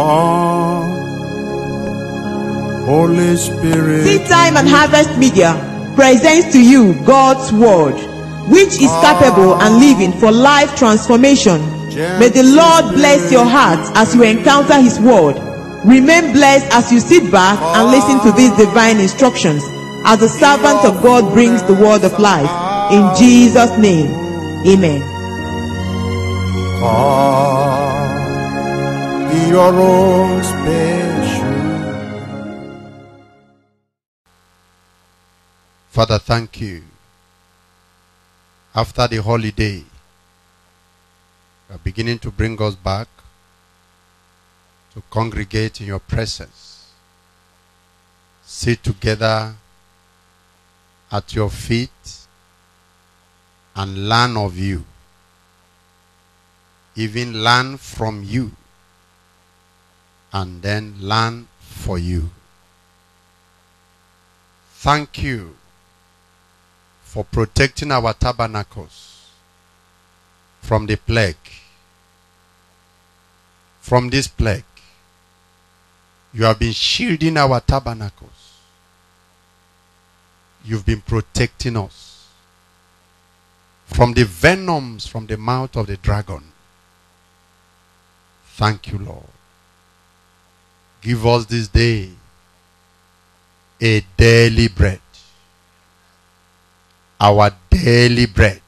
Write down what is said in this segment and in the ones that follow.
Holy Spirit. Seed Time and Harvest Media presents to you God's Word, which is capable and living for life transformation. May the Lord bless your heart as you encounter His Word. Remain blessed as you sit back and listen to these divine instructions as the servant of God brings the Word of life. In Jesus' name, Amen your own special. Father, thank you. After the holiday, you are beginning to bring us back to congregate in your presence, sit together at your feet, and learn of you, even learn from you and then learn for you. Thank you for protecting our tabernacles from the plague. From this plague, you have been shielding our tabernacles. You've been protecting us from the venoms from the mouth of the dragon. Thank you, Lord. Give us this day a daily bread. Our daily bread.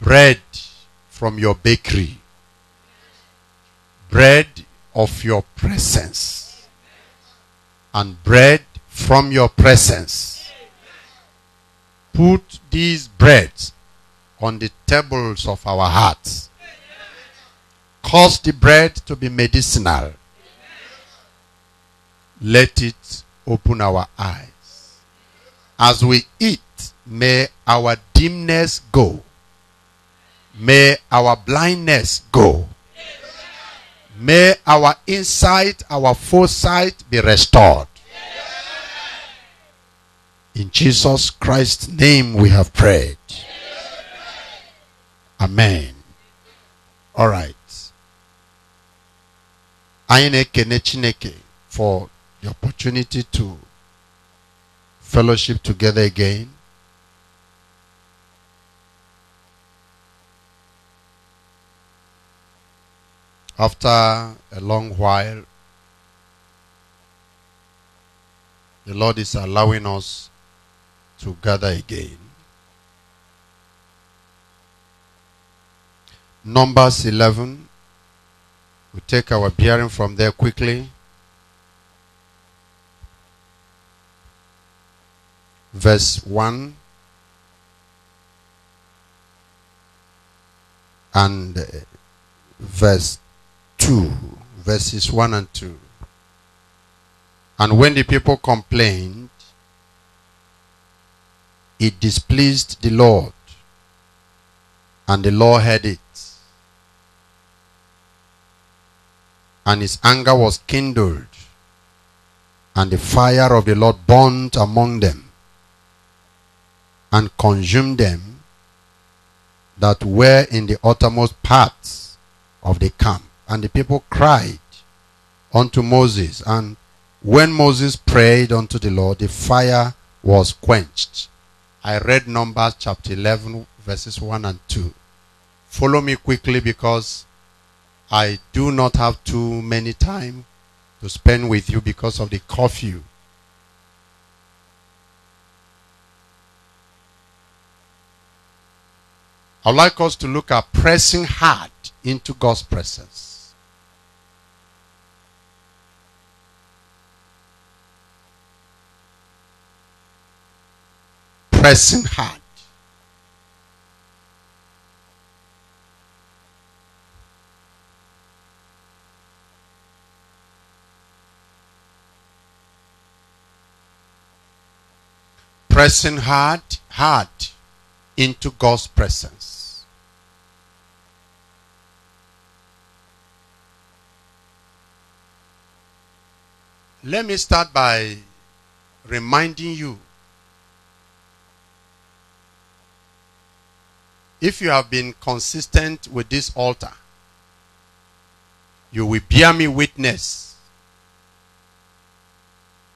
Bread from your bakery. Bread of your presence. And bread from your presence. Put these breads on the tables of our hearts cause the bread to be medicinal. Let it open our eyes. As we eat, may our dimness go. May our blindness go. May our insight, our foresight be restored. In Jesus Christ's name we have prayed. Amen. All right anyị for the opportunity to fellowship together again. After a long while, the Lord is allowing us to gather again. Numbers 11 we take our bearing from there quickly. Verse 1 and uh, verse 2. Verses 1 and 2. And when the people complained, it displeased the Lord, and the Lord heard it and his anger was kindled, and the fire of the Lord burnt among them and consumed them that were in the uttermost parts of the camp. And the people cried unto Moses. And when Moses prayed unto the Lord, the fire was quenched. I read Numbers chapter 11, verses 1 and 2. Follow me quickly because I do not have too many time to spend with you because of the curfew. I'd like us to look at pressing hard into God's presence. Pressing hard. pressing hard, hard into God's presence. Let me start by reminding you if you have been consistent with this altar, you will bear me witness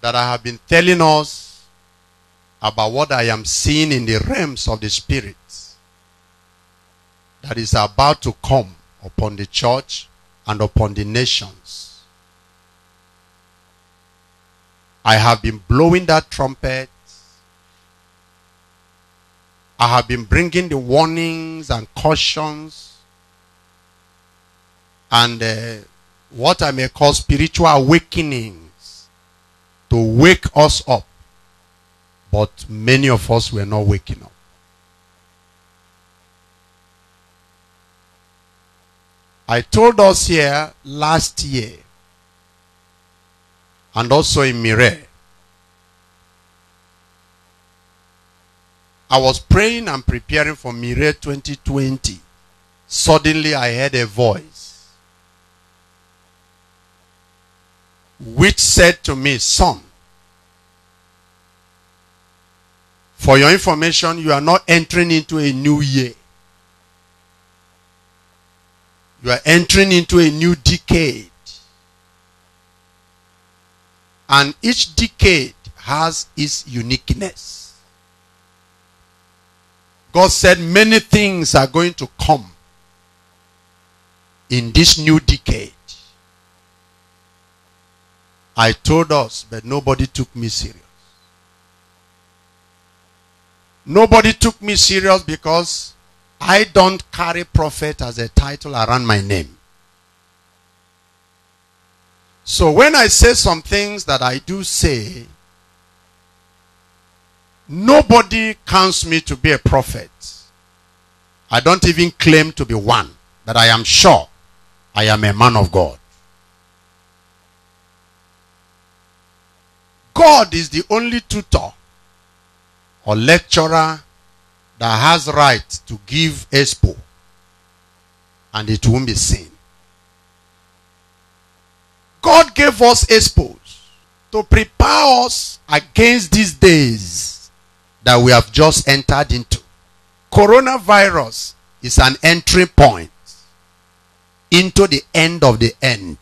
that I have been telling us about what I am seeing in the realms of the Spirit that is about to come upon the church and upon the nations. I have been blowing that trumpet. I have been bringing the warnings and cautions and uh, what I may call spiritual awakenings to wake us up but many of us were not waking up. I told us here last year and also in Mire. I was praying and preparing for Mire 2020. Suddenly I heard a voice which said to me, Son, For your information, you are not entering into a new year. You are entering into a new decade. And each decade has its uniqueness. God said many things are going to come in this new decade. I told us, but nobody took me serious. Nobody took me serious because I don't carry prophet as a title around my name. So when I say some things that I do say, nobody counts me to be a prophet. I don't even claim to be one, but I am sure I am a man of God. God is the only tutor or lecturer that has right to give expo and it won't be seen. God gave us expos to prepare us against these days that we have just entered into. Coronavirus is an entry point into the end of the end.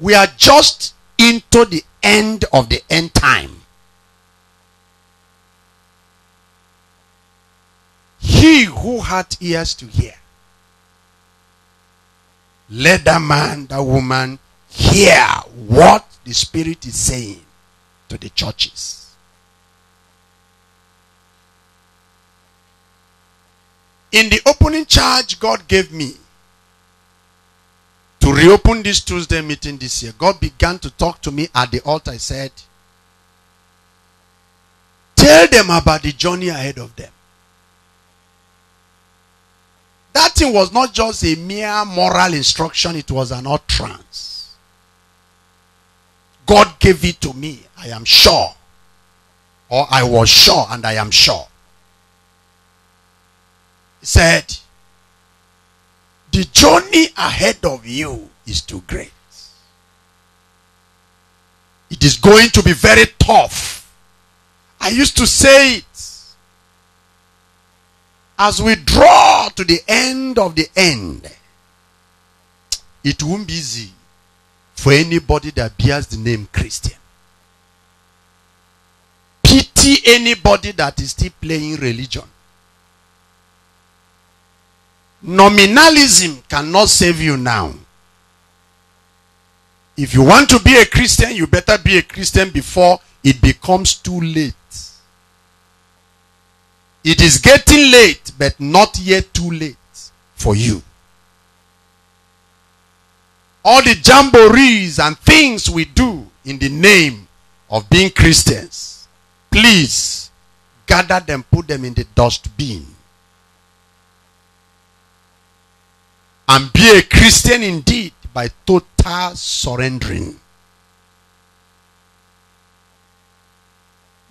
We are just into the end of the end time. He who had ears to hear, let that man, that woman hear what the Spirit is saying to the churches. In the opening charge God gave me, to reopen this Tuesday meeting this year, God began to talk to me at the altar. I said, Tell them about the journey ahead of them. That thing was not just a mere moral instruction, it was an utterance. God gave it to me, I am sure. Or I was sure, and I am sure. He said, the journey ahead of you is too great. It is going to be very tough. I used to say it. As we draw to the end of the end, it won't be easy for anybody that bears the name Christian. Pity anybody that is still playing religion. Nominalism cannot save you now. If you want to be a Christian, you better be a Christian before it becomes too late. It is getting late, but not yet too late for you. All the jamborees and things we do in the name of being Christians, please gather them, put them in the dustbin. and be a Christian indeed by total surrendering.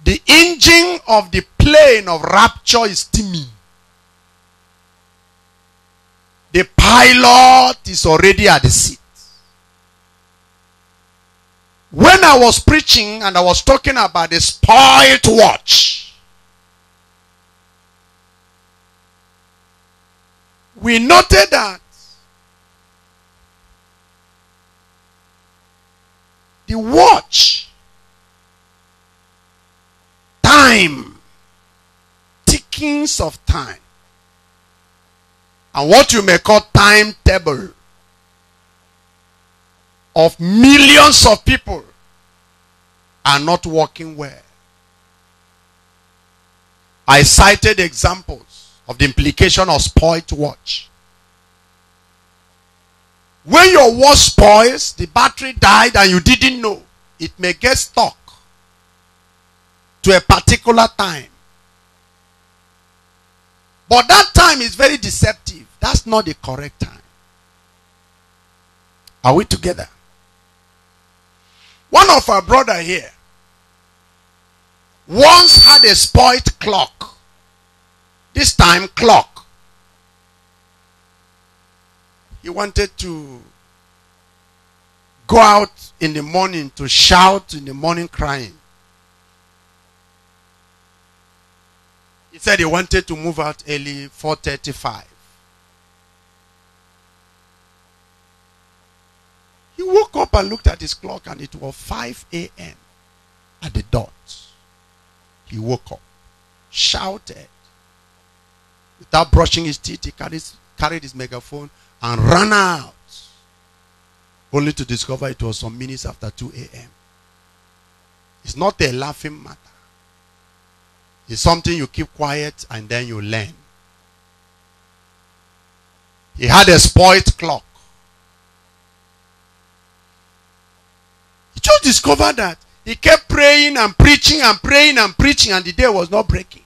The engine of the plane of rapture is steaming. The pilot is already at the seat. When I was preaching and I was talking about the spirit watch, we noted that The watch, time, tickings of time, and what you may call timetable of millions of people are not working well. I cited examples of the implication of spoilt watch. When your watch spoils, the battery died and you didn't know, it may get stuck to a particular time. But that time is very deceptive. That's not the correct time. Are we together? One of our brother here once had a spoiled clock. This time clock. He wanted to go out in the morning to shout in the morning crying. He said he wanted to move out early 4:35. He woke up and looked at his clock and it was 5 a.m. at the dot. He woke up, shouted. Without brushing his teeth, he carried, carried his megaphone and ran out, only to discover it was some minutes after 2 a.m. It's not a laughing matter. It's something you keep quiet and then you learn. He had a spoilt clock. He just discovered that he kept praying and preaching and praying and preaching, and the day was not breaking.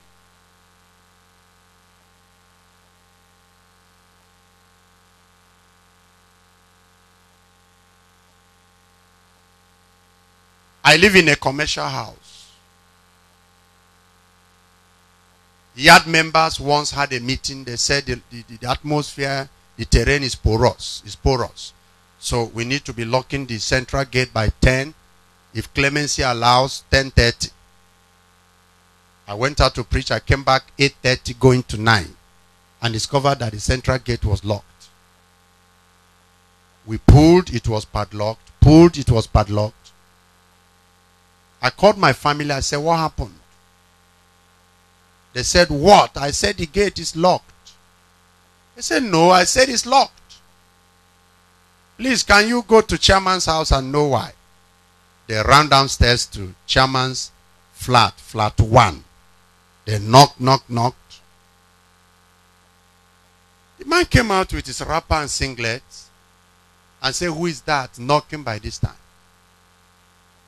I live in a commercial house. Yard members once had a meeting. They said the, the, the atmosphere, the terrain is porous. Is porous. So we need to be locking the central gate by 10. If clemency allows, 10.30. I went out to preach. I came back 8.30 going to 9 and discovered that the central gate was locked. We pulled, it was padlocked. Pulled, it was padlocked. I called my family. I said, What happened? They said, What? I said, The gate is locked. They said, No. I said, It's locked. Please, can you go to chairman's house and know why? They ran downstairs to chairman's flat, flat one. They knocked, knocked, knocked. The man came out with his wrapper and singlet and said, Who is that knocking by this time?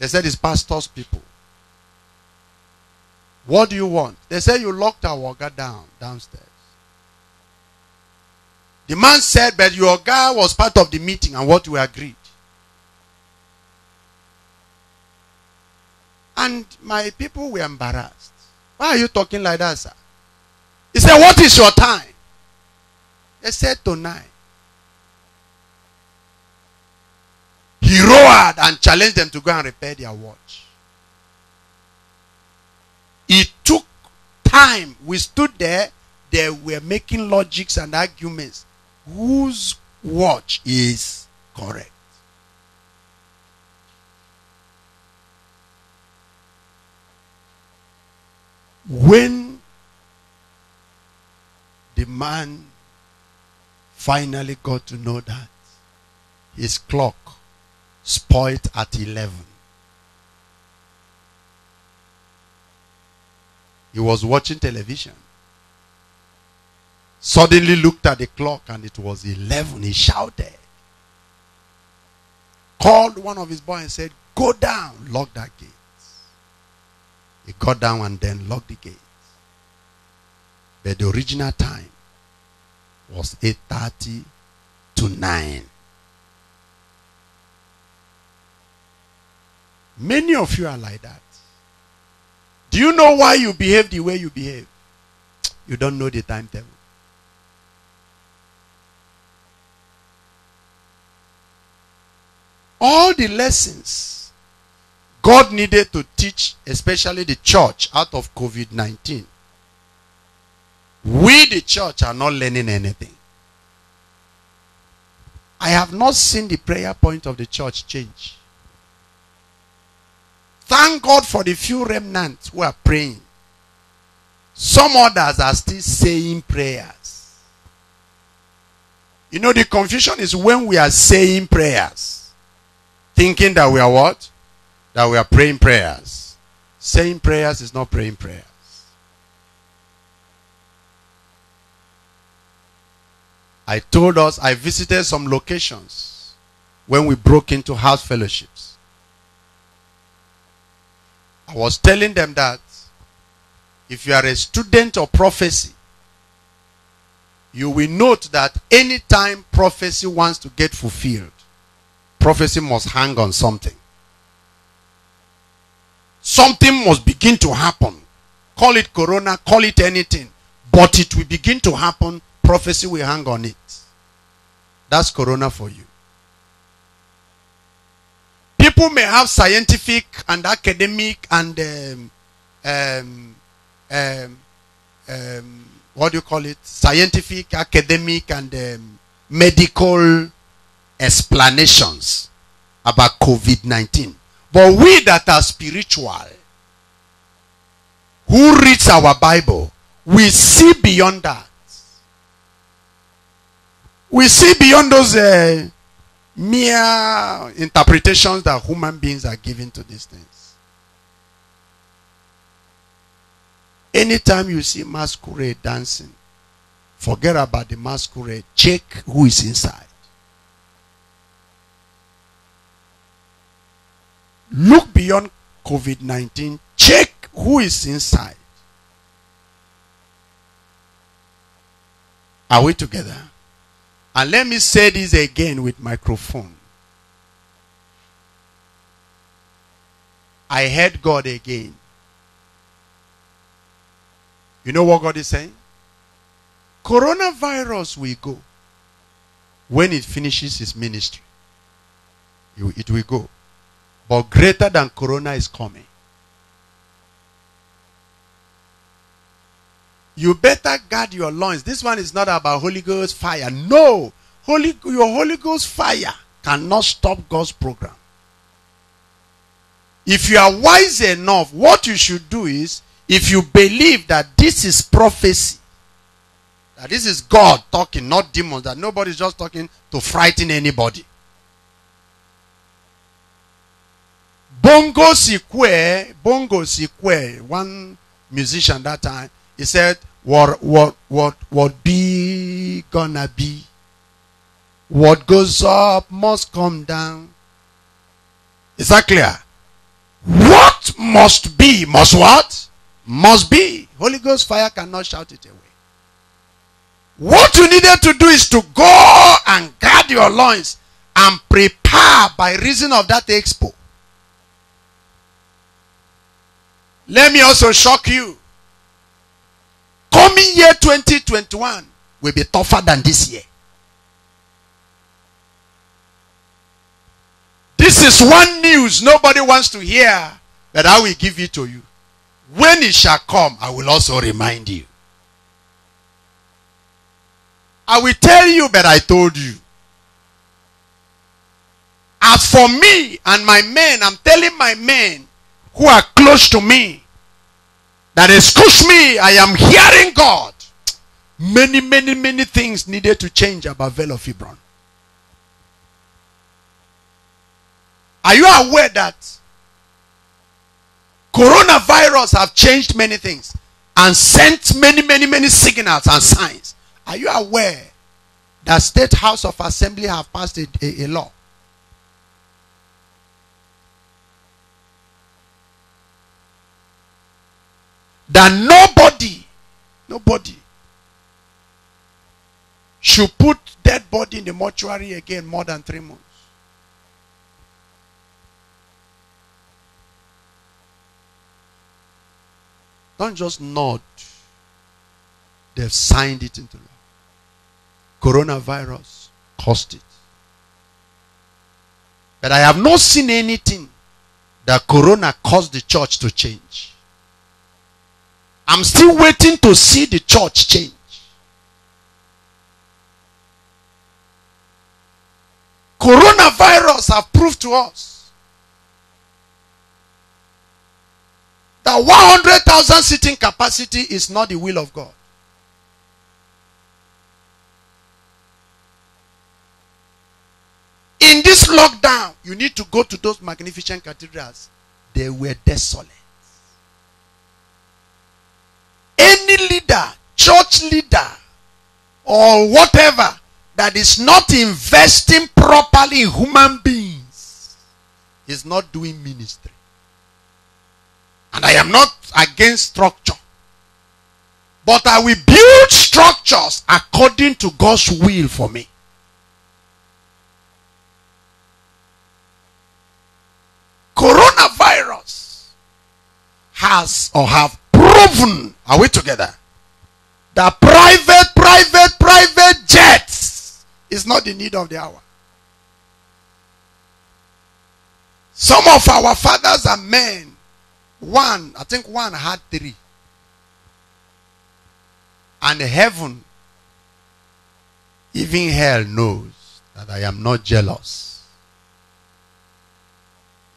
They said it's pastor's people. What do you want? They said you locked our Oga down downstairs. The man said, but your guy was part of the meeting and what we agreed. And my people were embarrassed. Why are you talking like that, sir? He said, What is your time? They said, Tonight. roared and challenged them to go and repair their watch. It took time. We stood there. They were making logics and arguments. Whose watch is correct? When the man finally got to know that his clock spoiled at 11. He was watching television. Suddenly looked at the clock and it was 11. He shouted. Called one of his boys and said, Go down, lock that gate. He got down and then locked the gate. But the original time was 8.30 to 9. Many of you are like that. Do you know why you behave the way you behave? You don't know the timetable. All the lessons God needed to teach, especially the church, out of COVID 19, we, the church, are not learning anything. I have not seen the prayer point of the church change. Thank God for the few remnants who are praying. Some others are still saying prayers. You know, the confusion is when we are saying prayers, thinking that we are what? That we are praying prayers. Saying prayers is not praying prayers. I told us I visited some locations when we broke into house fellowships. I was telling them that if you are a student of prophecy, you will note that anytime prophecy wants to get fulfilled, prophecy must hang on something. Something must begin to happen. Call it corona, call it anything. But it will begin to happen. Prophecy will hang on it. That's corona for you people may have scientific and academic and um, um, um, um, what do you call it? Scientific, academic, and um, medical explanations about COVID 19. But we that are spiritual, who reads our Bible, we see beyond that. We see beyond those. Uh, mere interpretations that human beings are giving to these things. Anytime you see masquerade dancing, forget about the masquerade. Check who is inside. Look beyond COVID 19. Check who is inside. Are we together? And let me say this again with microphone. I heard God again. You know what God is saying? Coronavirus will go. When it finishes its ministry, it will go. But greater than corona is coming. You better guard your loins. This one is not about Holy Ghost fire. No. Holy, your Holy Ghost fire cannot stop God's program. If you are wise enough, what you should do is if you believe that this is prophecy, that this is God talking, not demons, that nobody's just talking to frighten anybody. Bongo Sikwe, Bongo Sikwe, one musician that time, he said, what what what what be gonna be what goes up must come down is that clear what must be must what must be holy ghost fire cannot shout it away what you needed to do is to go and guard your loins and prepare by reason of that expo let me also shock you coming year 2021 will be tougher than this year. This is one news nobody wants to hear, but I will give it to you. When it shall come, I will also remind you. I will tell you, but I told you. As for me and my men, I'm telling my men who are close to me, that excuse me, I am hearing God. Many, many, many things needed to change about Vale of Hebron. Are you aware that coronavirus have changed many things and sent many, many, many signals and signs? Are you aware that State House of Assembly have passed a, a, a law that nobody, nobody should put dead body in the mortuary again more than three months. Don't just nod. They've signed it into law. Coronavirus caused it. But I have not seen anything that corona caused the church to change. I'm still waiting to see the church change. Coronavirus have proved to us that 100,000 seating capacity is not the will of God. In this lockdown, you need to go to those magnificent cathedrals. They were desolate. Any leader, church leader, or whatever that is not investing properly in human beings is not doing ministry. And I am not against structure. But I will build structures according to God's will for me. Coronavirus has or have proven are we together? The private, private, private jets is not the need of the hour. Some of our fathers are men. One, I think one had three. And heaven, even hell knows that I am not jealous.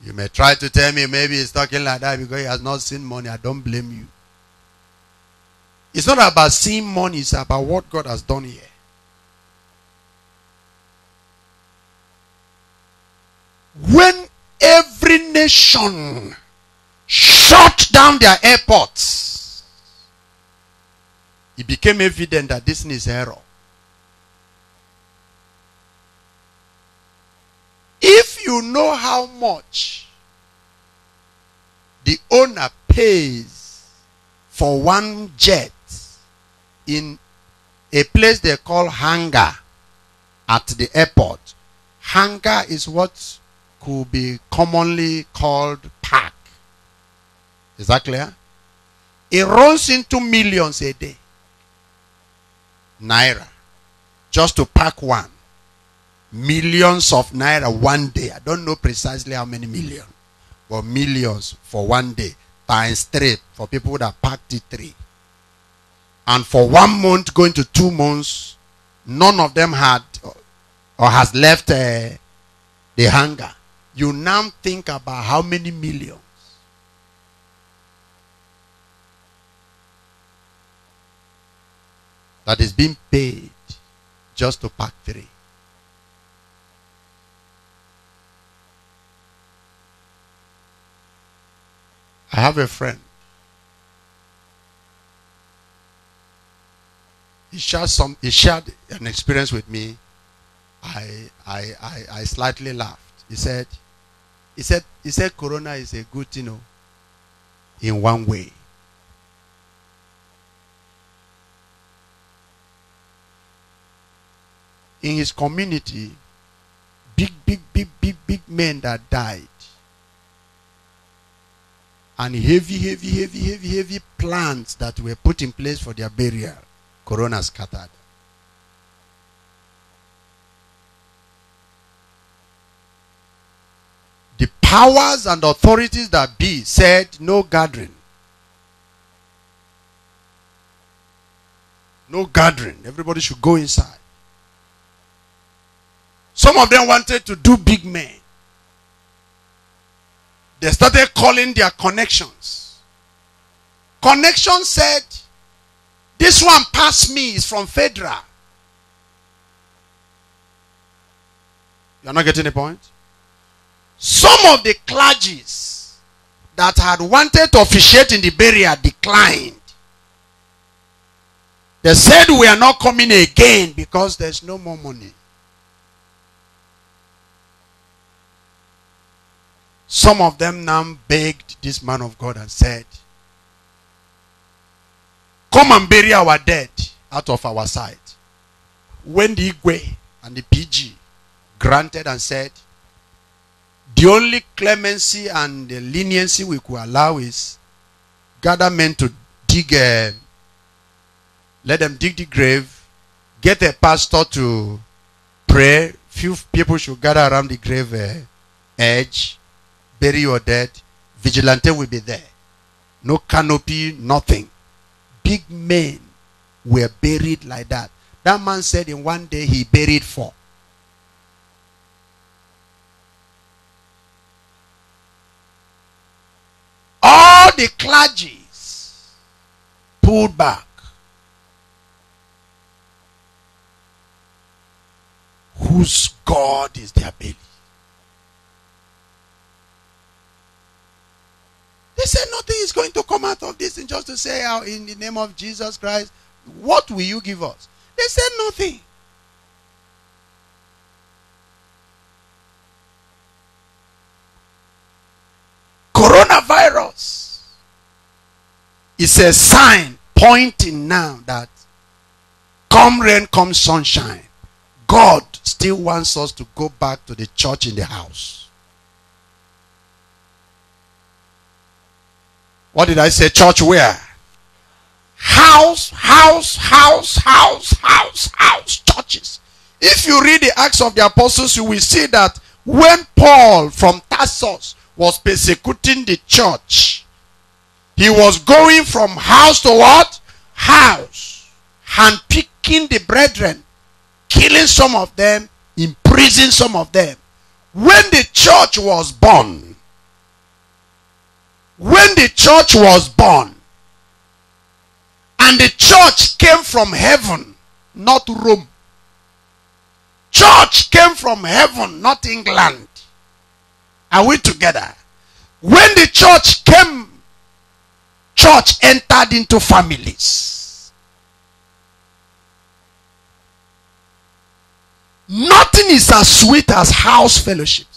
You may try to tell me maybe he's talking like that because he has not seen money. I don't blame you. It's not about seeing money, it's about what God has done here. When every nation shut down their airports, it became evident that this is error. If you know how much the owner pays for one jet in a place they call hangar at the airport. Hangar is what could be commonly called park. Is that clear? It runs into millions a day. Naira. Just to park one. Millions of naira one day. I don't know precisely how many million. But millions for one day. Times three for people that packed it three and for one month going to two months, none of them had or has left uh, the hunger. You now think about how many millions. That is being paid just to pack three. I have a friend he shared some he shared an experience with me. I I I, I slightly laughed. He said, he said he said corona is a good you know in one way. In his community, big, big, big, big, big men that died. And heavy, heavy, heavy, heavy, heavy plans that were put in place for their burial. Corona scattered. The powers and authorities that be said no gathering. No gathering. Everybody should go inside. Some of them wanted to do big men. They started calling their connections. Connection said, this one past me is from Fedra. You're not getting the point? Some of the clergies that had wanted to officiate in the burial declined. They said, We are not coming again because there's no more money. Some of them now begged this man of God and said, Come and bury our dead out of our sight. When the Igwe and the PG granted and said, the only clemency and the leniency we could allow is gather men to dig a, um, let them dig the grave, get a pastor to pray, few people should gather around the grave uh, edge, bury your dead, vigilante will be there. No canopy, nothing big men were buried like that. That man said in one day he buried four. All the clergies pulled back. Whose God is their belly? They said nothing is going to come out of this and just to say how oh, in the name of Jesus Christ, what will you give us? They said nothing. Coronavirus is a sign pointing now that come rain, come sunshine, God still wants us to go back to the church in the house. What did I say? Church where? House, house, house, house, house, house, churches. If you read the Acts of the Apostles, you will see that when Paul from Tarsus was persecuting the church, he was going from house to what? House. picking the brethren, killing some of them, imprisoning some of them. When the church was born, when the church was born and the church came from heaven, not Rome. Church came from heaven, not England. Are we together? When the church came, church entered into families. Nothing is as sweet as house fellowship.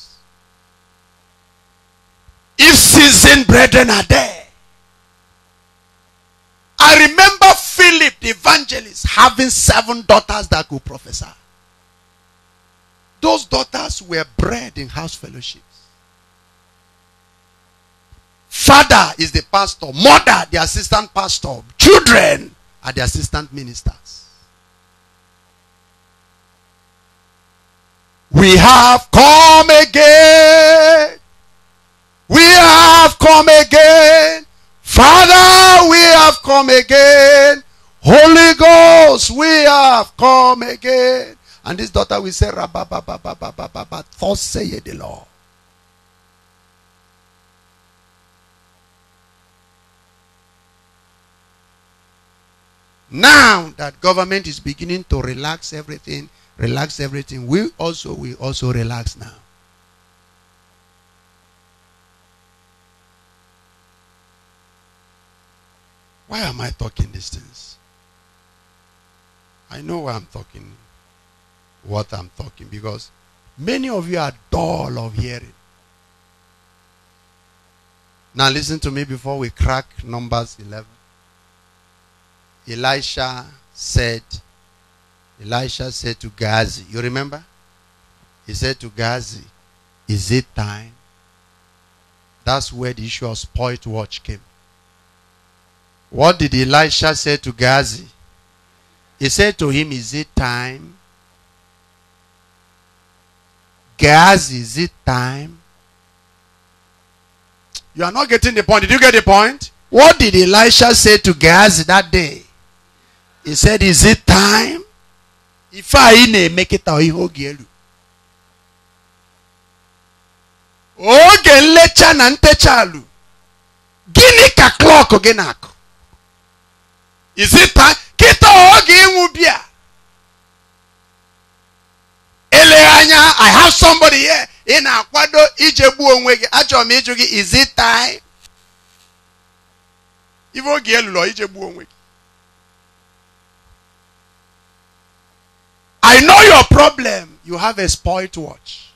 If seasoned brethren are there. I remember Philip the evangelist having seven daughters that could prophesy. Those daughters were bred in house fellowships. Father is the pastor, mother, the assistant pastor, children are the assistant ministers. We have come again we have come again. Father, we have come again. Holy Ghost, we have come again. And this daughter will say, Rabba, ba, ba, ba, ba, ba, ba, ba, thus the Lord. Now that government is beginning to relax everything, relax everything, we also we also relax now. Why am I talking these things? I know why I'm talking, what I'm talking, because many of you are dull of hearing. Now listen to me before we crack Numbers 11. Elisha said, Elisha said to Gazi, you remember? He said to Gazi, is it time? That's where the issue of spoilt watch came. What did Elisha say to Gazi? He said to him, Is it time? Gazi, is it time? You are not getting the point. Did you get the point? What did Elisha say to Gazi that day? He said, Is it time? If I make it out, he oge nlecha na ntecha alụ gịnị ka klọk gị na-akụ is it o ọ ga-enwu inubia. i have somebody here ị na-akwado ijegbu onwe gị is it time Ivo oge elụlọ ijegbu i know your problem you have a spoilt watch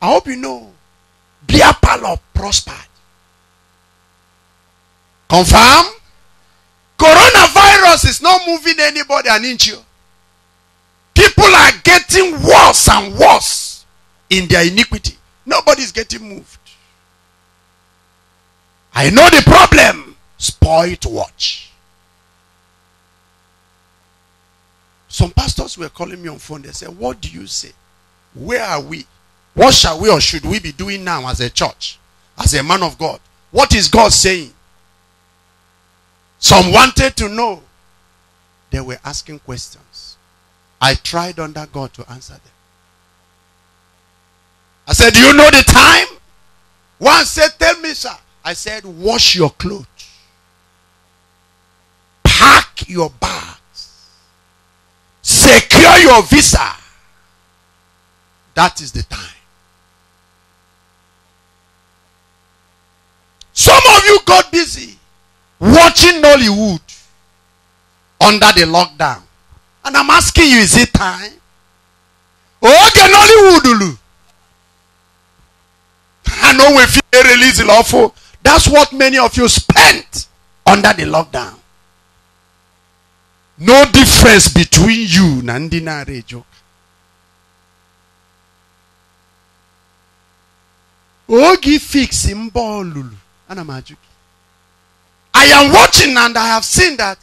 i hope you know pal of prosper. Confirm? Coronavirus is not moving anybody an inch. People are getting worse and worse in their iniquity. Nobody's getting moved. I know the problem. to watch. Some pastors were calling me on phone. They said, What do you say? Where are we? What shall we or should we be doing now as a church? As a man of God? What is God saying? Some wanted to know. They were asking questions. I tried under God to answer them. I said, Do you know the time? One said, Tell me, sir. I said, Wash your clothes, pack your bags, secure your visa. That is the time. Some of you got busy watching Nollywood under the lockdown. And I'm asking you, is it time? Oge Nollywood. I know if you release lawful, that's what many of you spent under the lockdown. No difference between you nandina rejo. Ogi fix him ball. Ana m I am watching and I have seen that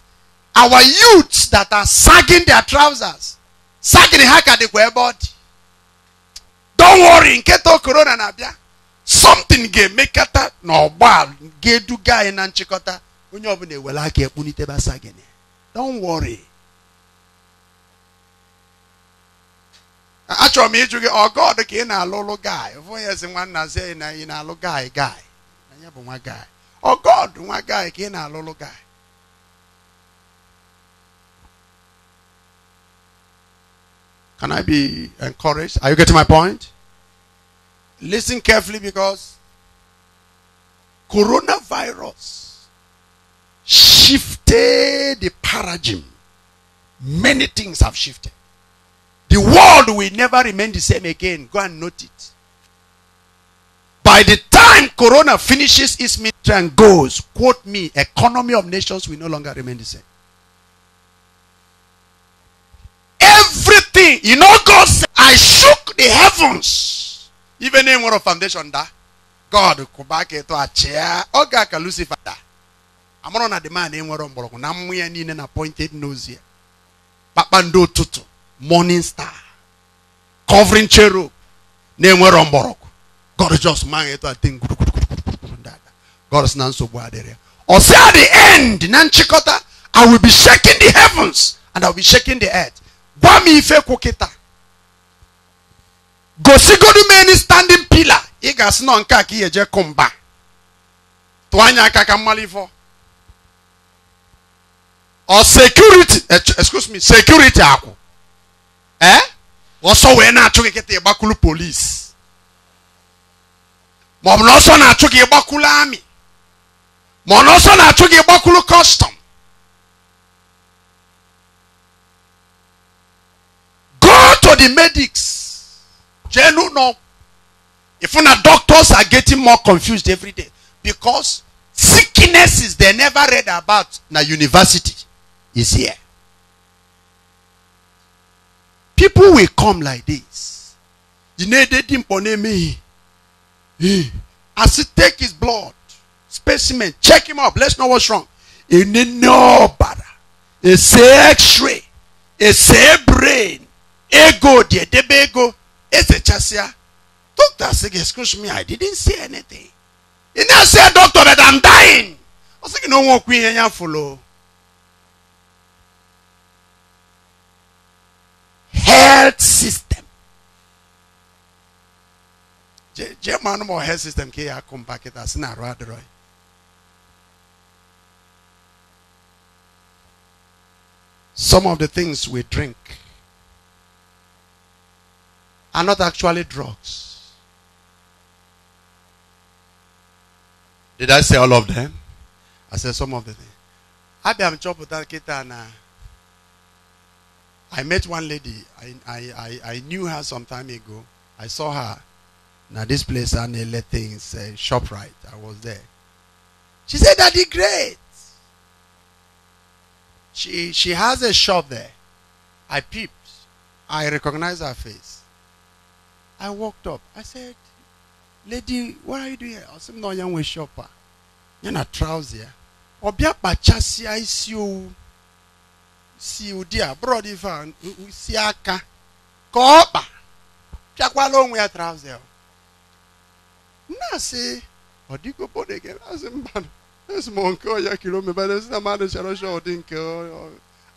our youths that are sagging their trousers, sagging ha ka ebe ọ Don't worry, nketa corona na-abịa. Something ga-emekata na ọgba ga-eduga anyị na nchikota onye na ewere aka ekpunitebe sagini. Don't worry. Achọrọ m ịjụ gị ọ God ka ị na-alụlụ guy. Ụfọdụ ya sị nwanna zie na ị na-alụ guy guy. Anyị bụ nwa guy. Or oh, God my guy again, i little guy. Can I be encouraged? Are you getting my point? Listen carefully because coronavirus shifted the paradigm. Many things have shifted. The world will never remain the same again. Go and note it. By the time Corona finishes its ministry and goes, quote me, economy of nations will no longer remain the same. Everything, you know, God said, I shook the heavens. Even in one foundation that God could back it to a chair. Oga ka Lucifer that. I'm on a demand in one of na I'm in an appointed nose here. Papando Tutu, morning star, covering cherub, name where gorgeous mind that thing god si na nsogbu adịrị ọ si at the end na nchịkọta i will be shaking the heavens and i will be shaking the earth gwa m ife kwu kịta gosigodu m standing pillar ị ga-asị nọ nke a ka ị eje kụ mba tụọ anya aka ka mmalụ or security eh, excuse me security aku ee ọsọ wee na-achụ gị kịta Monosona ọ bụ na ọsọ na-achụ gị ịgbakwulu amị ma ọ na gi ami na gi kostom go to the medics jee n'ụlọ ịfụ na doctors are getting more confused every day because sicknesses they never read about na university is here people will come like this. You need to dimpo na emeghị as he take his blood specimen check him up let's know what's wrong He ẹni ní ọ̀bàrà ẹsẹ̀ x-ray ẹsẹ̀ brain ego díẹ̀ débẹ̀ ego ẹsẹ̀ chasia doctor say excuse me i didn't see anything He now say doctor that i'm dying ọ say you no wọn queen yẹn follow. health system. German mo health system ke ya compact as na ro adro. Some of the things we drink are not actually drugs. Did I say all of them? I said some of the things. Abia mchọpụta nkịta na I met one lady. I, I, I, I knew her some time ago. I saw her. Now this place Anele things, uh, right. I was there. She said, "Daddy, great." She she has a shop there. I peeped. I recognized her face. I walked up. I said, "Lady, what are you doing here?" I said, "No, young shopper. You're not trouser. Obia pachasia is you." See you a brọd ife a si aka ka ọ kpa pịakwala onwe ya travel na-asị ọ dịgo bode azị mba m nke ọya kilomita si na mmadụ chara ọcha ọ dị nke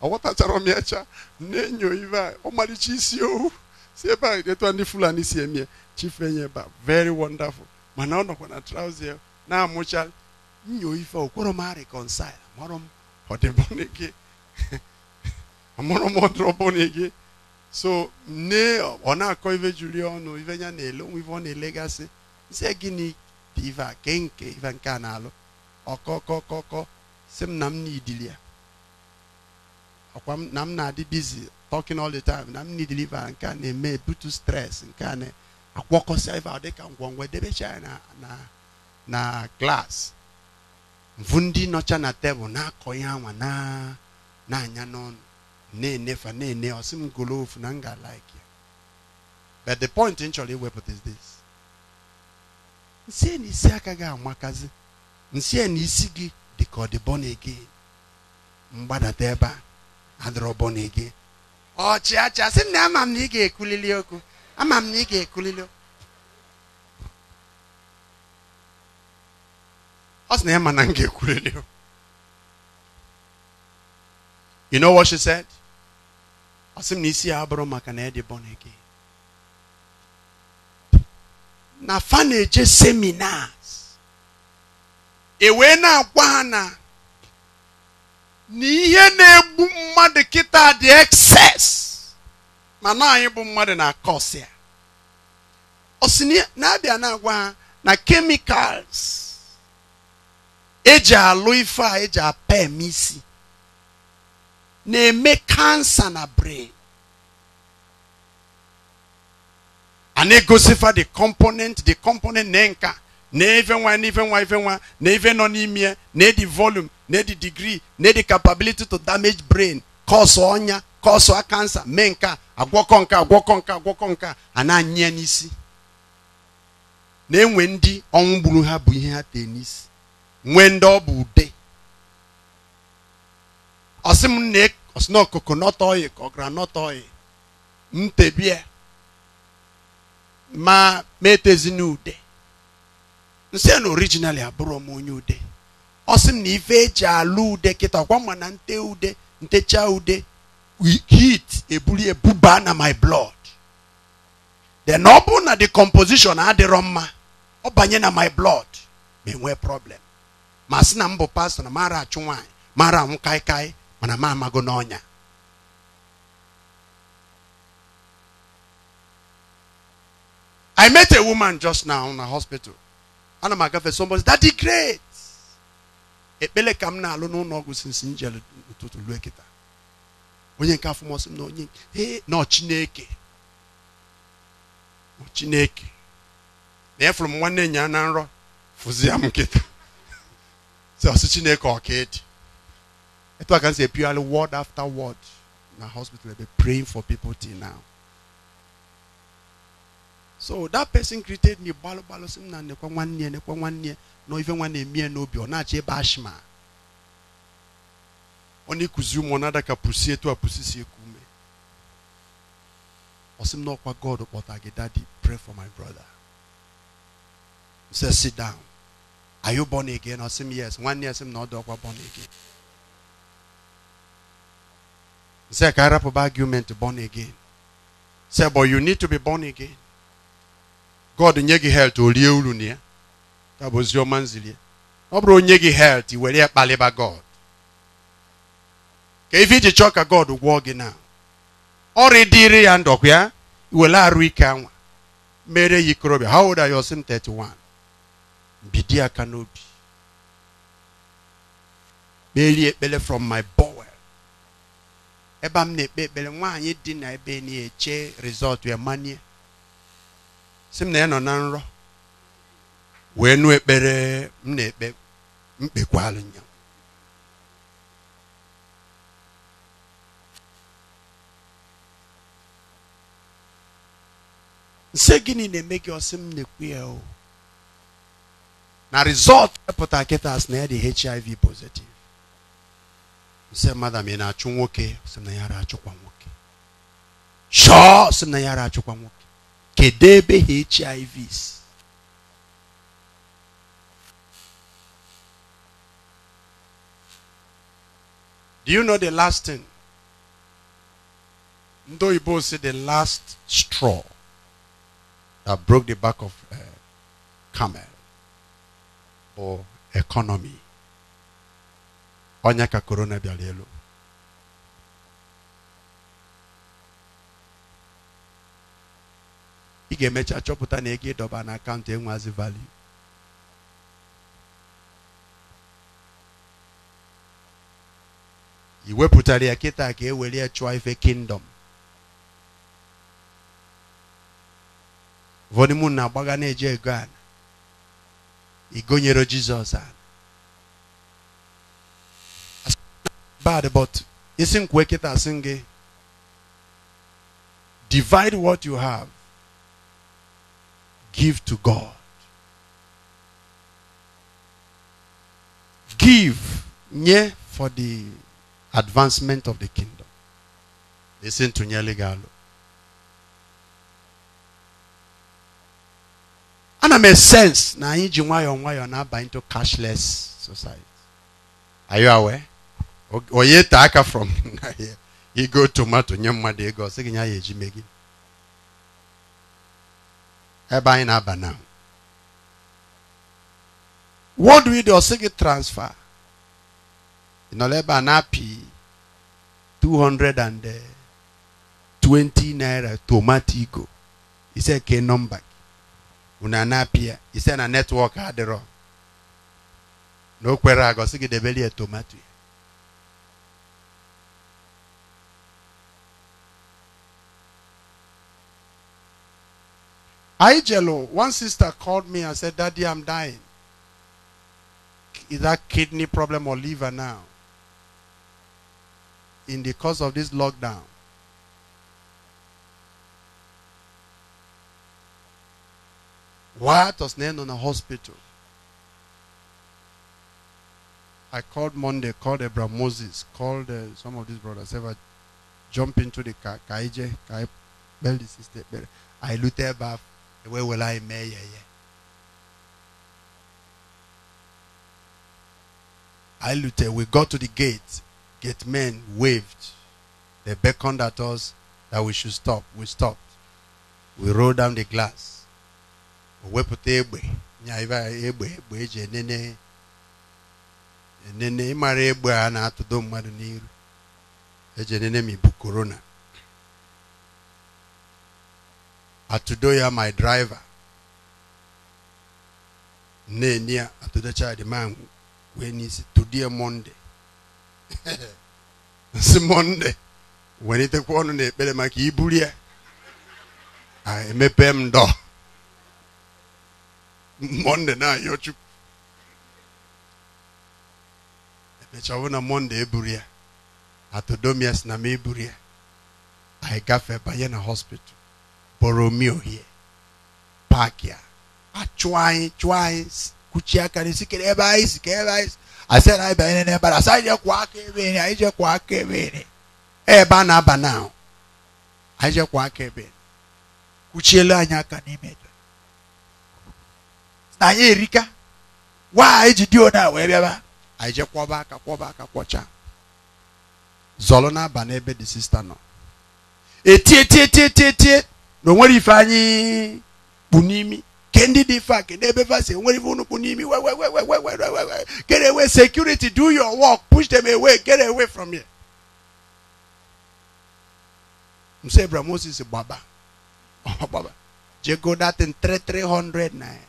m cha na-enyo ibe a ọmalịcha isi ohu si ebe a ndị fulani si emie chifenye ebe ba very wonderful mana ọ nọkwa na trouser na-amụcha nyo ife okporo m mụrụ m mụrụ m so nne ọ na-akọ ife juli ọnụ ife ya na-ele onwe ọ na-elegasị sị gịnị dị ive a kee nke ive nke a na-alụ ọkọkọkọkọ sị m na m n'idili ya ọkwa m na m na-adị bizi talking all the time na m n'idiliva nke a na-eme ebutu stress nke a na-akwọkọsịa ive dịka ngwongwo edebecha ya na na na klaasị mvụ ndị nọcha na tebụl na-akọ ihe anwa na-anya n'ọnụ na-enefa na-ene ọsị m golo ofu na m ga alike ya but the point m chọrọ iwepụta is this nsị na isi aka gị amakazi nsị na isi gị dị ka ọ dị bọna gị mgbadata ebe a adịrọ bọna gị ọchịacha sị na ama m na ị ga-ekwulili okwu ama m na ị ga-ekwulili okwu ọ sị na ya ma na m ga-ekwulili okwu you know what she said ọ sị m na isi ya abụrụ maka na ị dị bọna gị na faneje na-eje seminars e wee na-agwa ha na na ihe na-egbu mmadụ kịta dị excess mana anyị bụ mmadụ na kọs ya osi na-abịa na-agwa ha na kemikals eji alụ ife a eji apa eme isi na-eme kansa na brain a na-egosifa the component the component na nka na ife nwa na ife nwa ife nwa na ife nọ n'ime ya na edi volume na edi degree na edi capability to damage brain kọsụ ọnya kọsụ kansa mee nka agwọkọ nka agwọkọ nka agwọkọ nka a na-anya n'isi na-enwe ndị ọnwụ gburu ha bụ ihe ha tee n'isi nwee ndị ọ bụ ude ọsị m na ọsị na coconut oil ka ọ ma metezina ude nsị na originali abụrụ m onye ude ọ sị m na ife eji alụ ude kịta ọkwa ma na nte ude ntecha ude heat ebuli ebuba na my blood then ọ bụ na the composition adịrọ mma ọ banye na my blood ma enwee problem ma sị na m bụ pastọ na mara achụ nwaanyị mara anwụ kaikai mana m amago n'ọnya I met a woman just now in a hospital. Ana m agafe somebody "That's great. Ekpele ka m na-alụ n'ụlọ ọgwụ since m jere ụtụtụ lue kịta. Onye nke afọ mọsị m na onye nọ Chineke. Chineke. Na efuru m nwanne nya na nrọ fụzi m nkịta. Si ọsị Chineke ọkaịdị. Etu a ka m si epigharị word after word na hospital ebe praying for people till now. so that person created me balo balo. Sim na nekwa nwanne ya nekwa nwanne ya na ife no na-eme ya n'obi ọ na-achọ ebe ashma na nada ka pusi etu a ekume. si eku ume ọ sị m na god kpọta daddy pray for my brother He says sit down are you born again I say yes nwanne ya sị m na ọ born again m sị ka arapụba argument born again sị but you need to be born again God nye gị helt o rie uru na ya ya bụ oziọma ọ bụrụ onye gị helt were ya kpalịba God ka ife iji chọọ ka God gwọọ gị na ọrịa dịrị ya ndọkwa ya were arụ ike anwa mere ya ikorobịa how old are you 31 bidi aka n'obi kperie ekpere from my bowel ebe a m na-ekpe ekpere nwaanyị dị na ebe na-eche rizọt ya manie sịm na ya nọ na nrọ wee nụ ekpere m na-ekpe mkpekwalụ nya nse gịnị na-eme gị ọsị m na-ekwu ya o na rizọt epụta kịta na ya dị hiv pozitiv nse mmadụ ma ị na-achụ nwoke sị na ya achụkwa nwoke chọọ sị na ya achụkwa nwoke kedebe HIVs. Do you know the last thing? you both say the last straw that broke the back of uh, camel or economy. Onyaka corona bialelo. ị ga-emecha chọpụta na ego ịdọba na akaụntụ enwazi value i wepụtara ya kịta ka e were ya chụọ ife kingdom vonimun na-agbaga na-eji ego a igonyere jizọs a bad but isi nkwe kịta sị gị divide what you have Give to God. Give nye for the advancement of the kingdom. Listen to Nyele Galo. ana make sense na anyị ji nwayoo nwayọọ into cashless society are you aware Oye taa from from He go tomato nye mmadụ ego ọ eji ɛban na aba na wɔn do yi deɛ ɔsɛ gɛ transfer nnɔlɛ ba na pii two hundred and eh, twenty naira tomatico isɛ ke number unana pia isɛ na network adirɔ n'o kpɛrɛ agɔ sigi debeli yɛ tomatoe. Ijelo. one sister called me and said, Daddy, I'm dying. Is that kidney problem or liver now? In the course of this lockdown. What was named on a hospital? I called Monday, called Abraham Moses, called uh, some of these brothers. Ever jump into the car, Kaije, Kai, Belly, Sister, I looted back where will I mee yɛyɛ I looted. We got to the gate. Gate men waved. They beckoned at us that we should stop. We stopped. We rolled down the glass. wepụta egbe nyaiva egbe egbe eji enene enene ịmara egbe a na-atụdo mmadụ n'iru eji enene ma ibu korona Atudoya, my driver. Ne near Atudocha, the man when is today Monday. It's Monday. When it kwon ne bele maki ibulia. I mepem do. Monday na yochu. Mechawona Monday eburia. Atudomias na me eburia. I gafe bayena hospital. Boromeo here park ya a chụọ anyị chụọ anyị kuchie aka n'isi kere ebe anyị si ebe anyị si asị na anyị banyere ebe anyị asị anyị jekwuo aka ebe anyị anyị jekwuo aka ebe anyị ebe a na-aba na ahụ anyị jekwuo aka ebe enyi kuchielu anyị aka n'ime na anyị erika gwa anyị ji dio na wee bịaba anyị je kwọba aka kwọba aka kwọcha zọlụ na aba n'ebe dị sista nọ etie tie tie tie tie na onwere ife anyị kpu n'imi kendi dị fa kedu ebe fa si onwere ife unu kpu n'imi we we we we we we we we get away security do your work push them away get away from here nso ebra moses gbaba gbaba jego datin 300 naira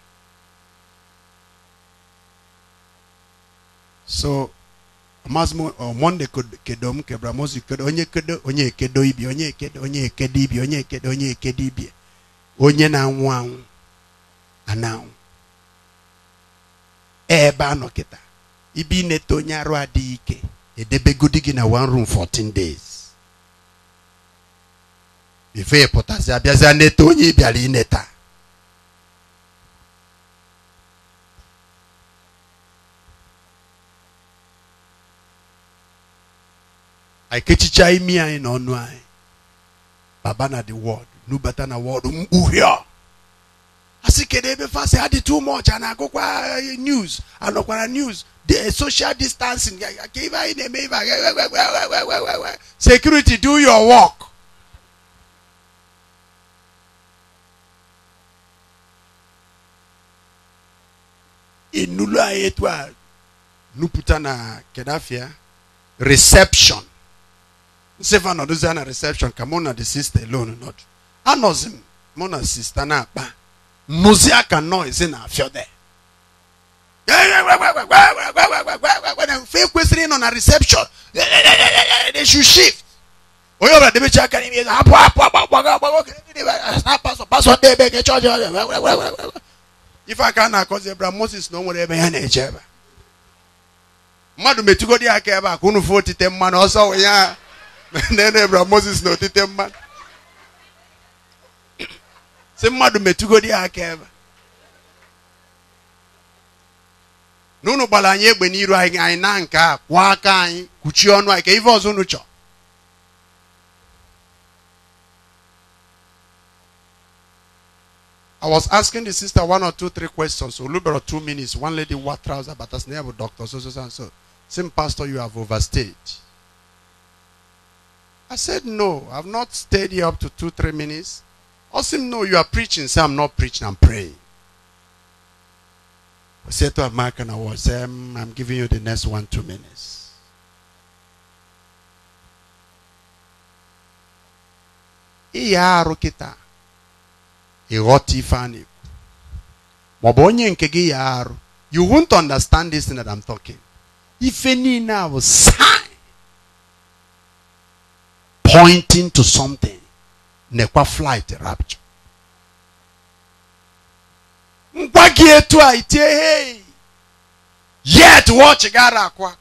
so maazi omonde oh, kedo m kebara mozu kedo onye kedo onye ekedo ibi onye ekedo onye ekedo ibi onye ekedo onye ekedo ibi onye na-anwụ anwụ ana-anwụ ebe a nọ kịta ibi ineta onye arụ adịghị ike edebegodi gị na wan room 14 days bifo ị pụtazi abịazi neta onye ị bịara ineta I imi anyị na in anyị baba na the world nubata na world mkpughe a asị kedu ebe fasi ha dị too much a eh, na kwa news anọkwara news the eh, social distancing ka ibe anyi security do your work inulu etwa. Nuputana nupụta na kedafia reception sịfa nọdụzi ya na reception ka mụ na the sister alone nọdụ anọzi m mụ na sista na-akpa nụzi aka noise na-afịọ de mfe kwesịrị ịnọ na reception they should shift onye ọbụla debecha aka n'ime ego hapụ hapụ agbaga a na-akọzi ebra moses na o nwere ebe ya na-eje ebe mmadụ metugodi aka ebe a ka unu fụ otite mmanụ ọsọ nene moses egbe na aka ọnụ I was asking the sister one or two, three questions. So, about two minutes. One lady, what trouser, but as name doctor, so, so, so, so. Same pastor, you have overstayed. I said, No, I've not stayed here up to two, three minutes. Osim, no, you are preaching. Say, I'm not preaching, I'm praying. I said to American was um, I'm giving you the next one, two minutes. Iya arụkịta ịghọta ife nke gị you won't understand this thing that I'm talking If any now bụ pointing to something. Nekwa flight rapture. Ngwa gị etu a itie hey. Yet watch gara akwa.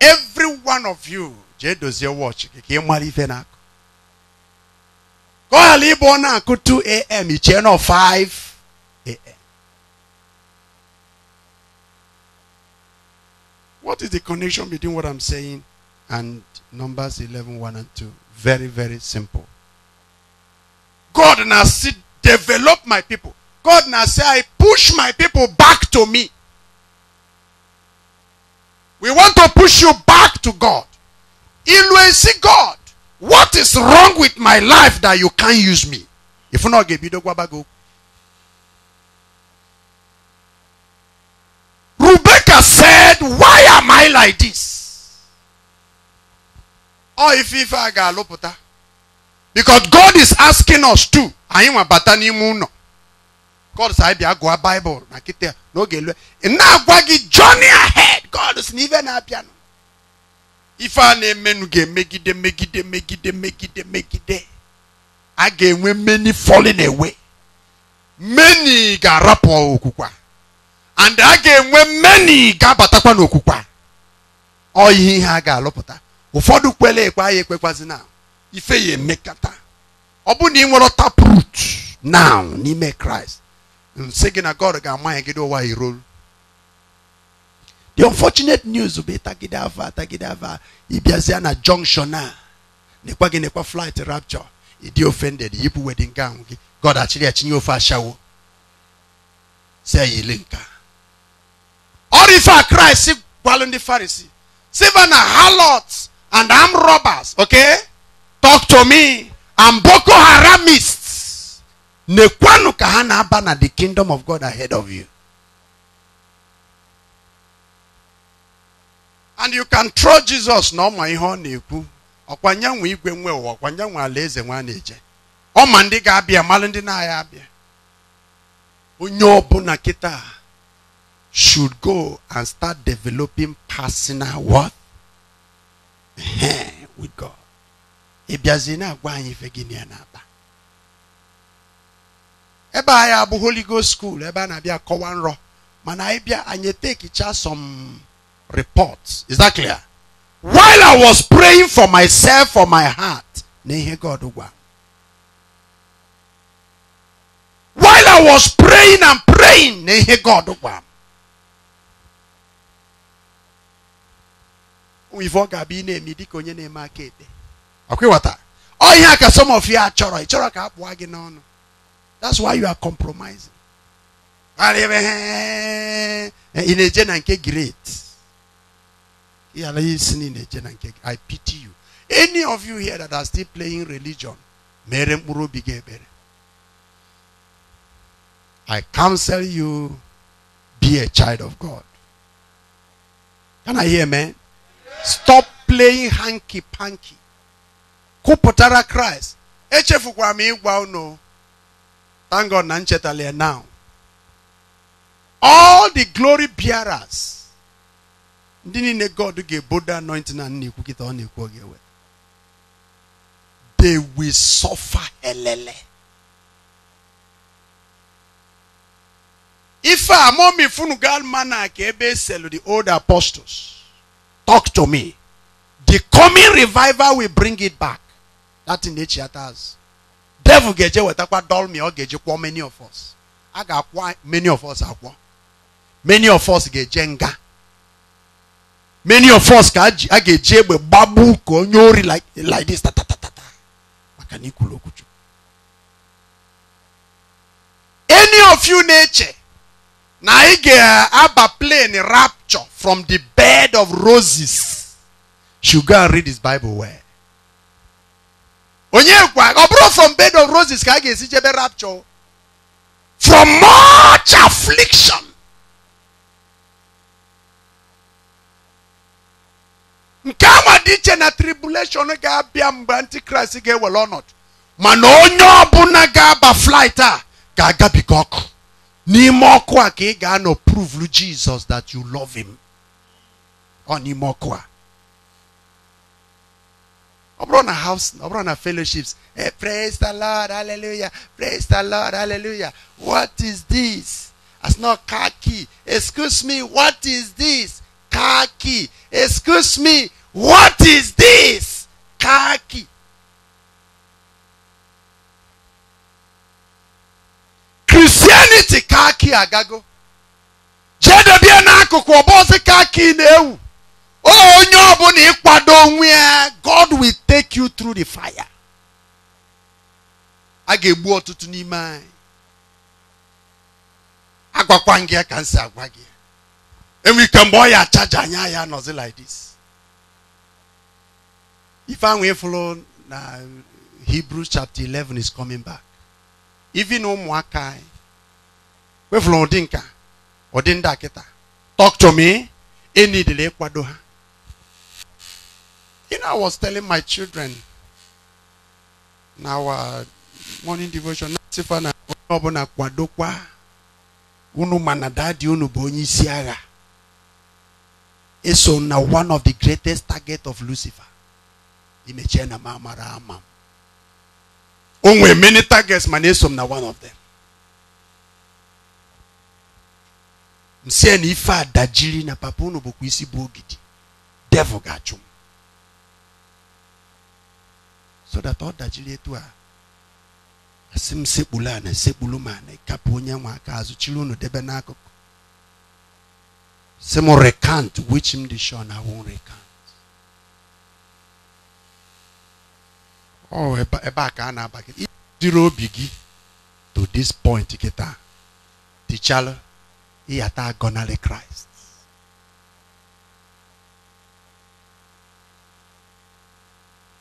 Every one of you jee dozie watch gị ka ị mara ife na-akụ. ọ 2 a.m. ichie channel 5 a.m. What is the connection between what I'm saying and Numbers 11 1 and 2. Very, very simple. God now see, develop my people. God now say, I push my people back to me. We want to push you back to God. see God. What is wrong with my life that you can't use me? If not, get the gwabago. Rebecca said, Why am I like this? ọ ife ife a ga-alụpụta because God is asking us to anyị nwa bata n'ime ụlọ God sị anyị bịa gụọ Bible na kịta n'oge lue ị na-agwa gị journey ahead God sị na ife na-abịanụ ife a na-emenụ ga-emegide megide megide megide megide a ga-enwe many falling away Meni ga-arapụ okwukwa and a ga-enwe meni ga-abatakwa n'okwukwa ọ ihe ihe a ga-alụpụta ụfọdụ kwele ekwe anyị ekwekwazi na ife ya emekata ọ bụ na ị nwere taprut now n'ime kraịst nsị gị na god ga-amanye gị ụwa iro the unfortunate news bụ ịtagide ava atagide ava ịbịazịa na junction a nekwa gị nekwa flight rapture ịdị ofended yipụ wedin gown gị god achịrị achinye ofe ashawo si ya ele nka ọrụ ife a kraịst gwalụ ndị farisi siva na halot and armed robbers, okay? Talk to me. And Boko Haramists. na aba na the kingdom of God ahead of you. And you can throw Jesus na ọma ihe ọ na-ekwu ọkwa igwe nwe ụwa ọkwa nyanwe alaeze nwa na-eje ọma ndị ga-abịa malụ ndị na-agha abịa onye ọbụla kita should go and start developing personal what with God. Ebiazina agwa anyị ife Eba ya na abụ Holy Ghost School eba a na-abịa kọwa mana ebia bịa anyị tekicha some reports. Is that clear? While I was praying for myself for my heart nehe God gwa. While I was praying and praying nehe God gwa wivo gabi na-emi dịka onye na-eme aka ekpe ọkwịghọta ọ ihe a ka some of ya chọrọ ị chọrọ ka a pụọ gị n'ọnụ that's why you are compromising ị na-eje na nke great yala isi na ị na-eje na nke I pity you any of you here that are still playing religion mere mkpụrụ obi gị ekpere I counsel you be a child of God can I hear man? stop playing hanky panky kwupụtara kraịst echefukwara m ịgwa unu thank god na nchetala now all the glory bearers ndị niile god ga-ebodo anointing a na-ekwu kịta ọ na-ekwu oge ewe they will suffer elele ife a momi funu gal mana ka ebe eselu the old apostles Talk to me. The coming revival will bring it back. That in nature has. Devil geje wetakwa doll me or geje kwa many of us. I got many of us akwa. Many of us geje nga. Many of us ka a geje egbe babu ka onye like like this ta ta ta ta. Maka na ikwulu Any of you nature na ị ga-aba plane rap rapture from the bed of roses should go and read his Bible where? onye gwa ọ from bed of roses ka jebe rapture from much affliction nke anwa dị na tribulation ga-abịa mgbe antikrist ga-ewere ọnọdụ mana onye ọbụla ga-aba flight ni ọkụ a ka prove ga prove Jesus that you love him ọ n'ime ọkụ a ọ bụrụ na house I've run na fellowships hey, eh, praise the lord hallelujah praise the lord hallelujah what is this As not khaki excuse me what is this khaki excuse me what is this khaki kristianity kaa kii agago jee dobie na ọba ọsị kaa kii na-ewu onye ọbụla ịkwado onwe god will take you through the fire a ga-egbu ọtụtụ n'ime anyị agwakwa gị ka m si agwa gị enwe ike mgbe ọ ya chaja anyị nọzi like this ife ahụ ịfụrụ na hebrews chapter 11 is coming back even ụmụaka anyị wefụrụ ụdị nka ụdị ndị akịta talk to me Any delay, Kwadoha. you know i was telling my children na our uh, morning devotion nasifa na onye kwadokwa unu manadadi na dadi unu bụ onye isi one of the greatest targets of lucifer Imechena mama ramam. onwe oh, nwere many targets mana eso m na one of them a na ife a dajiri na papa unu bụkwa isi bụ ogidi devil ga-achụ m so that ọ dajiri etu a asị m sekpulu ana sekpulu ma na ịkapụ onye nwe aka azụ chiri unu debe n'akụkụ sị m recant which m dị sure na won recant ọ oh, ebe a ka a na-aba gị obi gị to this point kịta tichalụ ịyata e agọnarị kraịst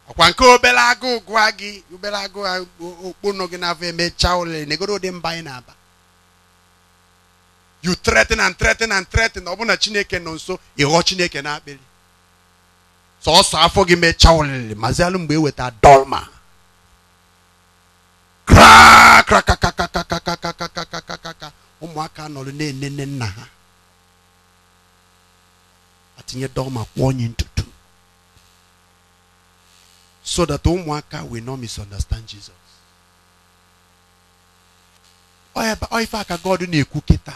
ọkwa nke obere agụụ gụọ gị obere agụụ okpono gị na-afọ emechaa ụlọ negoro ụdị mba anyị na-aba you threaten and threaten and threaten ọ bụ na chineke nọ nso ịghọ chineke na-akpịrị Sọọsọ afọ gị mechaa olili mazi alụ mgbe eweta dolma krakrakakakakakakakakakakakaka ụmụaka nọrọ na-enene nna ha atinye dolma kwụọ onye ntutu so that ụmụaka will not misunderstand Jesus ọ ife aka God na-ekwu kịta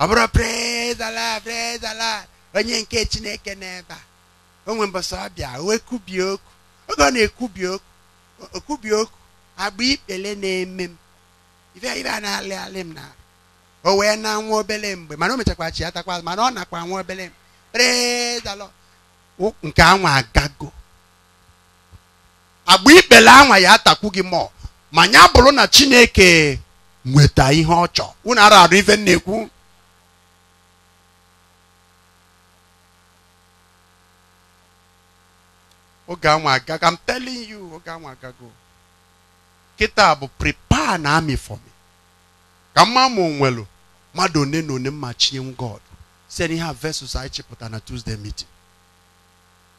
ọ bụrụ praise Allah praise Allah onye nke Chineke n'ebe a onwe mbasa abịa o ekubie okwu oge ọ na ekubi okwu okubie okwu agba ikpele na-eme m ife ife a na-alị alị m na o wee na nwa obele mgbe mana o mechakwa chi atakwa mana ọ nakwa nwa obele mgbe prezalọ nke anwa agago agba ikpele anwa ya atakwu gị mọ ma nya bụrụ na chineke nweta ihe ọ chọ unu ara arụ ife na-ekwu oge anwa agago I'm telling you oge anwa agago kịta bụ prepare na army for me ka mma ma onwelu mmadụ one na one mma God site ihe a versus anyị chịpụta na Tuesday meeting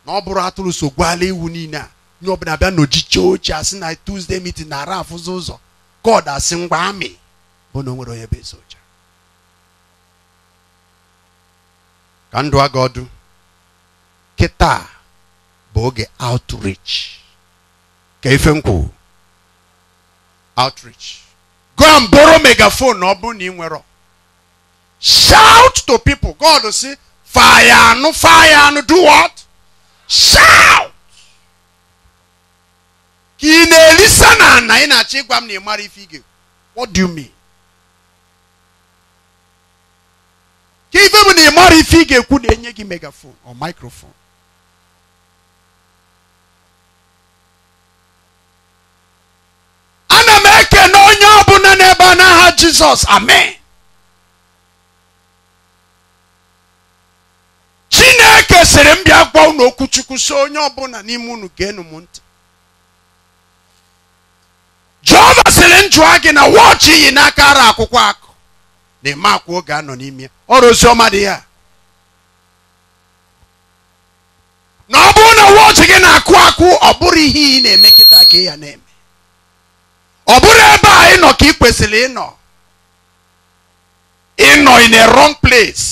na ọ bụrụ atụrụ so gwala iwu niile a nye ọbụla bịa n'ojiche ochie asị na Tuesday meeting na-ara afụzi ụzọ God asị ngwa amị bụ na o nwere onye bụ ka ndụ aga ọdụ kịta bụ oge outreach ka ife m kwuru outreach go and borrow megaphone na ọ bụrụ na ị nwere shout to people god si fire anụ fire anụ do what shout ka ị na-elisa na na ị na-achọ ịgwa m na ị mara ife ige what do you mean ka ife bụ na ị mara ife ike kwụ na-enye gị megafon or microphone onye ọ ọbụla n'ebe a n'aha jizọs amen chineke sịrị m bịa gwa unu okwuchukwu si onye ọbụla n'ime unu geenụ m ntị jehova sịrị m jụọ gị na wọchị iyi n'aka ara akwụkwọ akụ na-eme akwa oge anọ n'ime ya ọrụ ọma dị ya na ọ bụrụ na wọchị gị na-akụ akụ ọ bụrụ ihe ị na-eme kịta ka ya na-eme ọ bụrụ ebe a ịnọ ka ị kwesịrị ịnọ ịnọ in a wrong place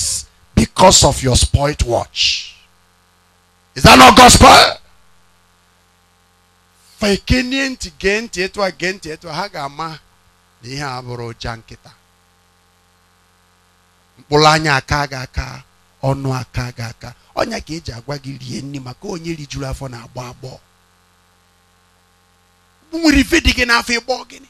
because of your spoilt watch is that not gospel fekenie ntị gee ntị etu a gee ntị etu a ha ga-ama na ihe a bụrụ ụja nkịta mkpụrụ anya aka gị aka ọnụ aka gị aka ọnya ka eji agwa gị rie nri maka onye rijuru afọ na-agbọ agbọọ nwere ife dị gị n'afọ ịgbọ gịnị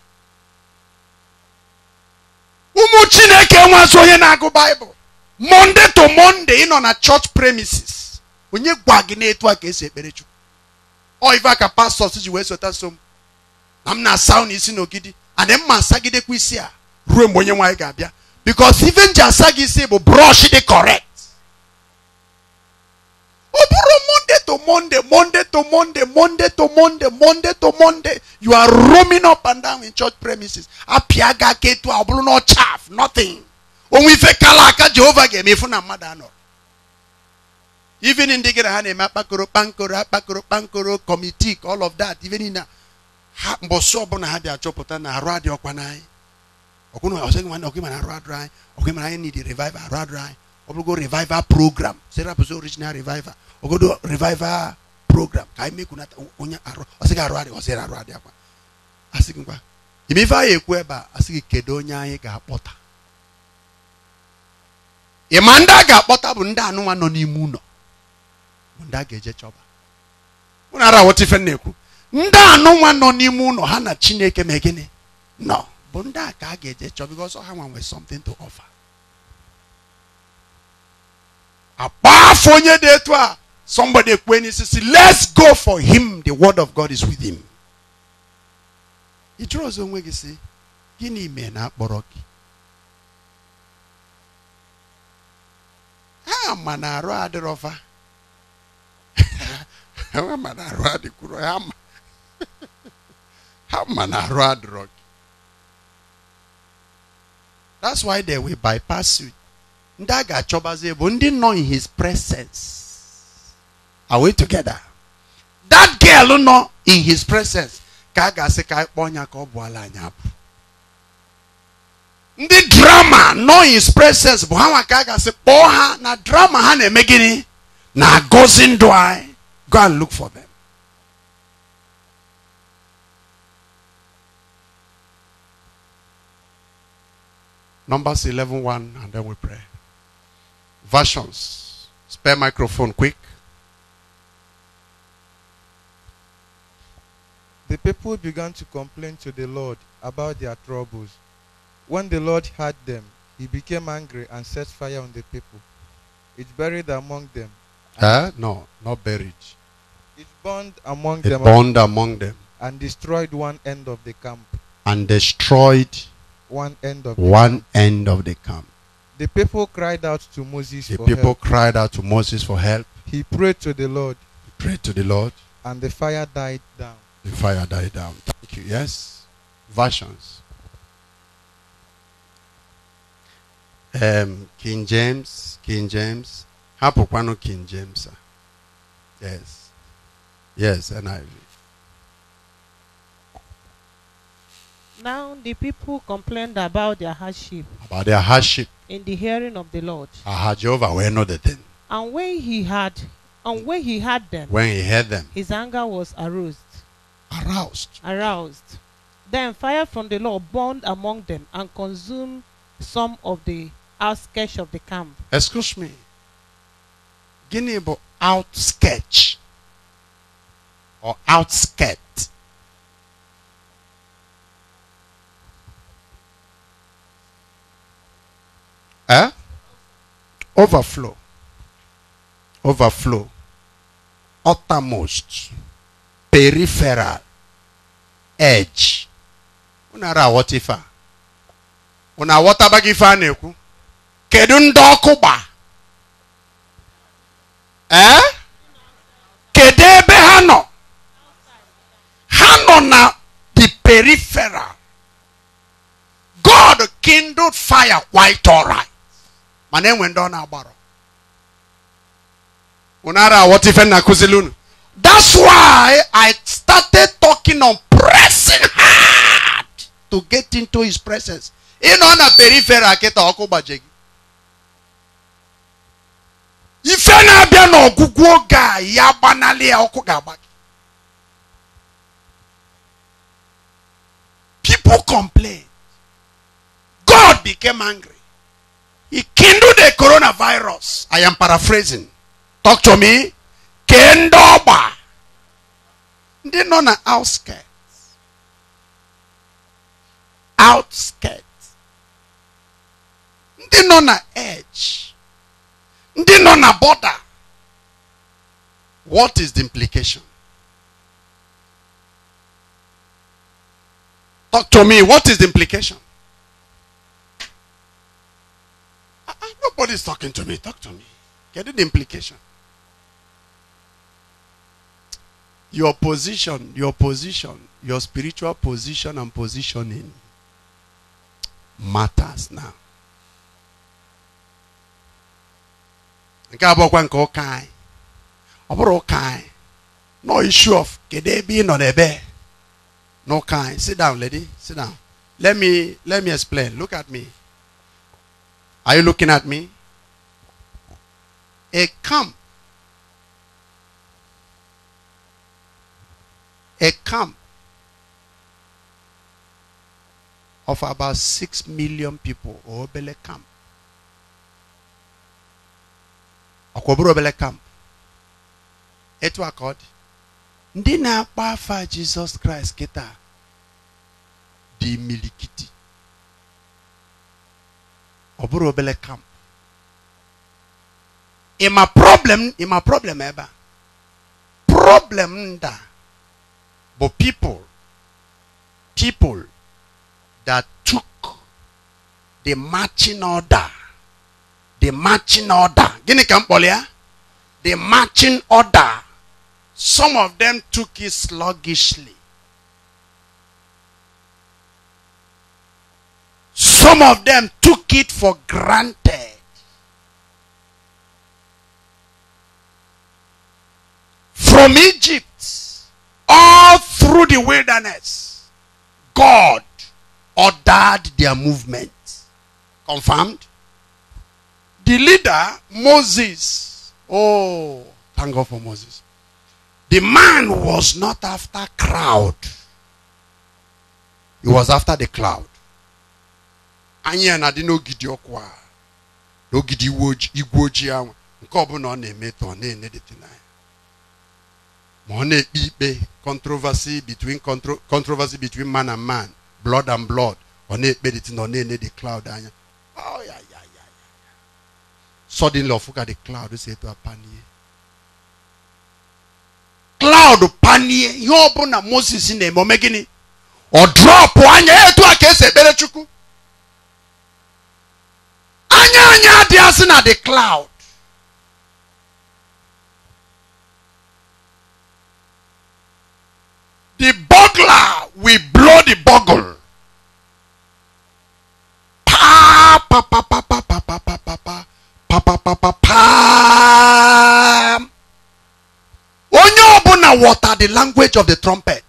ụmụ chineke nwazi onye na-agụ baịbụl monde to mọnde ị nọ na church premises onye gwa gị na-etu a ka esi ekpere chukwu ọ ife aka pastọs ji wee sota so m na m na-asa ụnụ isi n'ogidi adị mma asagidekwa isi a ruo mgbe onye nwaanyị ga-abịa bikos ife asa gị isi bụ brọsh dị correct ọ bụrụ monday to monday monday to monday monday to monday monday to monday you are roaming up and down in church premises apịa gị aka ọ bụrụ na ọ chaf nothing onwe ife kala aka jehova ga-eme ifu na mmadụ anọrọ even ndị gara ha na-eme akpakoro kpankoro akpakoro kpankoro committee all of that even na ha mbọsị ọbụla ha bịa chọpụta na arụ adị ọkwa n'anyị ọgụna ọsịghị nwanne ọgụ mana arụ adịrị anyị ọgụ mana anyị revive arụ adịrị anyị ọ bụrụgo revival program sere abụzi original revival ogodo revival program ka anyị mekunata onye arụ ọsị gị arụ adị ọsị arụ adị akwa asị gị ngwa ime ife anyị ekwu ebe a asị gị kedu onye anyị ga-akpọta ịma ndị a ga-akpọta bụ ndị anụnwa nọ n'ime ụlọ bụ ndị a ga-eje chọba mụna ara wọta ife na-ekwu ndị anụnwa nọ n'ime ụlọ ha na chineke ma gịnị nọ bụ ndị a ka a ga-eje chọba because ha nwa nwere something to offer A onye dị somebody ekwe let's go for him the word of God is with him. He draws on onwe gị si gịnị mena na-akpọrọ gị? Ha ma na arụ adịrọfa. Ha ma na That's why they will bypass you ndị chobaze ga bụ ndị nọ in his presence are we together that girl nọ in his presence ka a ga-asị ka kpọọ ya ka ọ bụ ala abụ ndị drama nọ in his presence bụ ha nwa ka a ga-asị kpọọ ha na drama ha na-eme gịnị na agọzi ndụ anyị go and look for them Numbers 11 1, and then we pray versions. Spare microphone quick. The people began to complain to the Lord about their troubles. When the Lord heard them, he became angry and set fire on the people. It buried among them. Eh? No, not buried. It burned among it them. burned among them. And destroyed one end of the camp. And destroyed one end of one camp. end of the camp. The people cried out to Moses the for people cried out to Moses for help. He prayed to the Lord. He prayed to the Lord. And the fire died down. The fire died down. Thank you. Yes. Versions. Um, King James, King James. Hapokwano King James. Yes. Yes, NIV. Now the people complained about their hardship. About their hardship in the hearing of the Lord. Aha, Jehovah will know the thing. And when he had, and when he had them, when he heard them, his anger was aroused. Aroused. Aroused. Then fire from the Lord burned among them and consumed some of the outskirts of the camp. Excuse me. Guinea outskirts or outskirt. Eh? Overflow. Overflow. Uttermost. Peripheral. Edge. Unara aghọta ife a. Unu aghọtaba gị ife a na-ekwu? Kedu ndị ọkụ Eh? Kedu ebe ha nọ? Ha nọ na the peripheral. God kindled fire quite all My name went down ọ na-agbara unara what if nna akụzili that's why i started talking on pressing hard to get into his presence ịnọ na peripheral kịta ọkụ gbaje ife na-abịa n'ọgwụgwụ oge ya gbanalị ya ọkụ ga-agba people complain god became angry he kindled the coronavirus. I am paraphrasing. Talk to me. Kendoba. They know na outskirts. Outskirts. They know na edge. They know na border. What is the implication? Talk to me. What is the implication? Nobody's talking to me. Talk to me. Get the implication. Your position, your position, your spiritual position and positioning matters now. nke abụọkwa nke ụka anyị ọ bụrụ ụka anyị no issue of kedu ebe ị nọ n'ebe n'ụka anyị sit down lady sit down let me let me explain look at me are you looking at me? A camp. A camp of about 6 million people, Obele camp. Okwoburu Obele camp. Etu akọdị. Ndị Jesus Christ Jizọs kịta dị ɔbɛrɛ ɔbɛlɛ kam ima problem ima problem ɛba problem da but people people that took the marching order the marching order gini ka mkpọlịa eh? the marching order some of them took it sluggishly Some of them took it for granted. From Egypt, all through the wilderness, God ordered their movement. Confirmed? The leader, Moses, oh, thank God for Moses. The man was not after crowd. He was after the cloud. anyị ya na-adị n'ogidi ọkụ a n'ogidi igwe ojii ahụ nke ọbụla ọ na-eme tọ na-enedete n'anya ma ọ na-ekpe ikpe controversy between controversy between man and man blood and blood ọ na-ekpedịtị na ọ na-ene the cloud anya suddenly ọfụ ka the cloud si eto apanie cloud panie ihe ọbụla moses na-eme ome gịnị ọ drọpụ anya etu a ka esi ekpere chukwu anya anya adị asị na the cloud the burglar will blow the bugle pa pa pa pa pa pa pa pa pa pa pa pa pa pa onye ọbụla water the language of the trumpet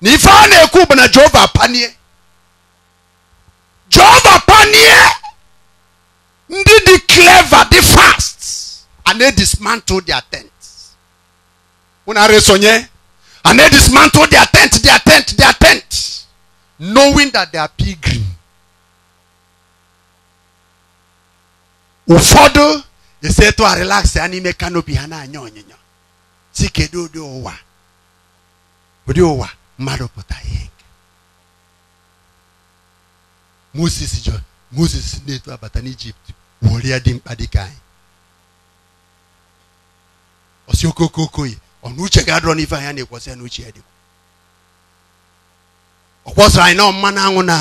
na ife a na-ekwu bụ panie and they dismantled their tents. Una resonye. And they dismantled their tent, their tent, their tent, knowing that they are pilgrim. Ụfọdụ esetu a relax ya n'ime kanopi ha na-anya onyinyo. Si kedu Owa, ụwa ụdị ụwa mmadụ pụta ihe nke. Moses jọ Moses na-eto abata n'Ijipt wụrụ ya dị mkpa dịka anyị. ọsi okoko ọ na uche ga-adọrọ n'ife anya na-ekwọsị na uche ya dịkwa ọ kwọsịrị anyị na mmanụ anwụ na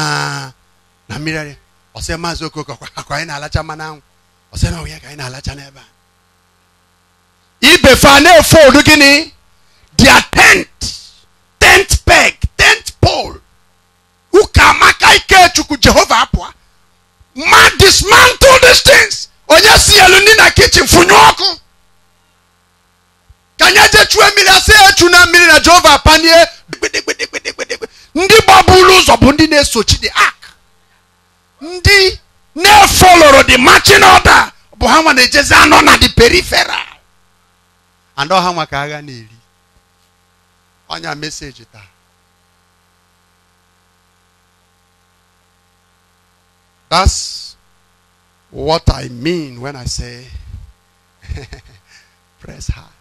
na mmiri arịa ọsị maazị okoko akwa anyị na-alacha mmanụ anwụ ọsị na ọhịa ka anyị na-alacha n'ebe a ibe fa na-efold gịnị dia tent tent peg tent pole ụka amaka chukwu jehova apụa ma dismantle these things onye si elu ndị na kichin fụnye ọkụ ka anyị eje chue mmiri asị ya echu na mmiri na jehova panie ndị gbaburu ụzọ bụ ndị na-esochi the ark ndị na-efoloro the marching order bụ ha nwa na-ejezi anọ na the peripheral anọ ha nwa ka agha na-eri ọnya meseji taa That's what I mean when I say press hard.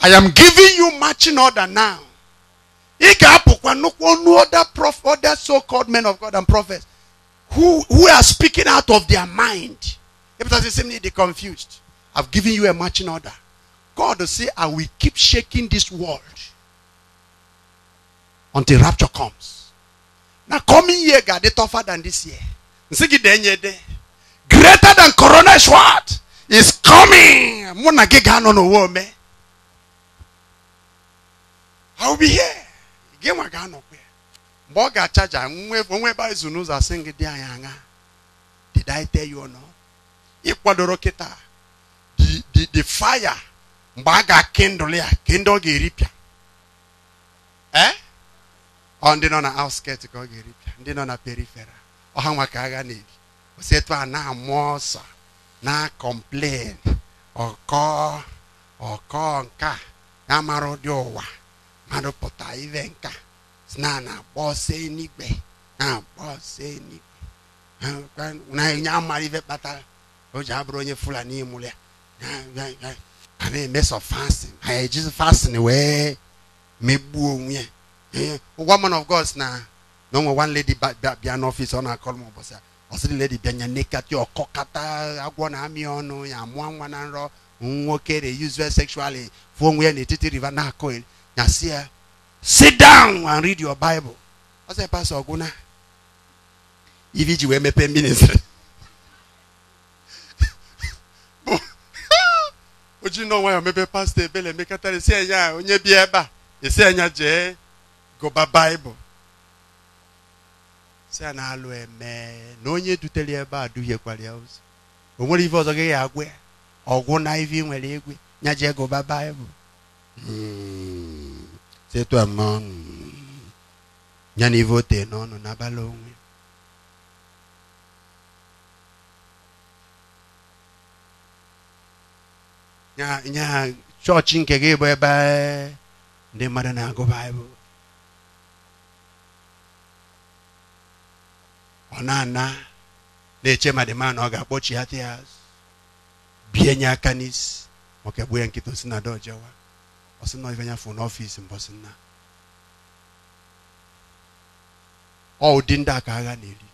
I am giving you marching order now. Ị ga-apụkwa other prof other so-called men of God and prophets who who are speaking out of their mind. Ịpụtasị sị m na ịdị confused. I've given you a marching order. God will say, I will keep shaking this world until rapture comes. Now coming year God, they tougher than this year. Greater than corona is what? Is coming. I'll be here. Gị nwa ga-anọkwa ya. Mgbe ọ ga-achaja onwe ebe izu n'ụzọ asị gị dị anyị aṅa. Did I tell you Ịkwadoro kịta. The, the fire mgbe a ga ndụla ya kịndụ ọ ga-eripịa. E? Ọ ndị nọ na outskirt ka ọ ga-eripịa ndị nọ na periferal ọha nwa ka agha na-ebi etu a na-amụ ọsọ na ọkọ ọkọ ya mara ụdị ụwa mmadụ pụta ive nka na na-agba ọsọ na-agba ọsọ na-enye amara ive kpatara o ji abụrụ onye fulani mụrụ ya a na-eme sọ fasin ha ejizi fasin wee megbuo onwe ya woman of God na na onwe one lady bịa n'ọfịs ọ na-akọrọ m ụbọchị a ọ sịrị lady bịa nya nekata agwọ na-amị ọnụ ya mụọ nwa na nrọ nwoke re uzual sekshụalị fụọ onwe ya n'etiti riva na-akọ na sịa eh, sit down and read your Bible. I said, Pastor Oguna, if you were mepe ministry. na no ya mepe pastor ebele mekatare si enya onye bi ebe Esi enya je gụba Bible. Si na-alụ eme na onye dutere ebe a duhiekwara ya ozi. O nwere ife ọzọ gị ga ya. ọgwụ na ife nwere egwe nya jee gụba Bible. Hmm. c'est toi mon nyani voté non non na balongwe nya church nke gị bụ ebe ndị mmadụ na-agụ baịbụl ọ na-ana na-eche ma dị mma na ọ ga-akpọchi ya bie nye aka n'isi ma ọ ya nkịta osi na ọsị na ife anyafọ n'ọfịs mbọsị nna ọ ụdị ndị a agha na-eri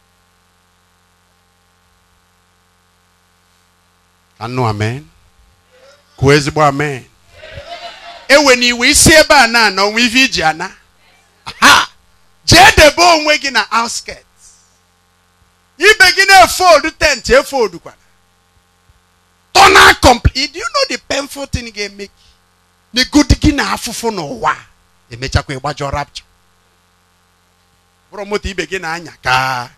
anụ amen kwuo ezigbo amen ewe na iwe isi ebe a na-anọ nwa ife iji ana ha jee debe onwe gị na outskirt ibe gị na-efold tent efoldkwara tọna complete do you know the painful thing ga-eme na egodi gị na afụfụ n'ụwa emechakwa ịgbajọ rapcha bụrụ moto ibe gị na-anya ka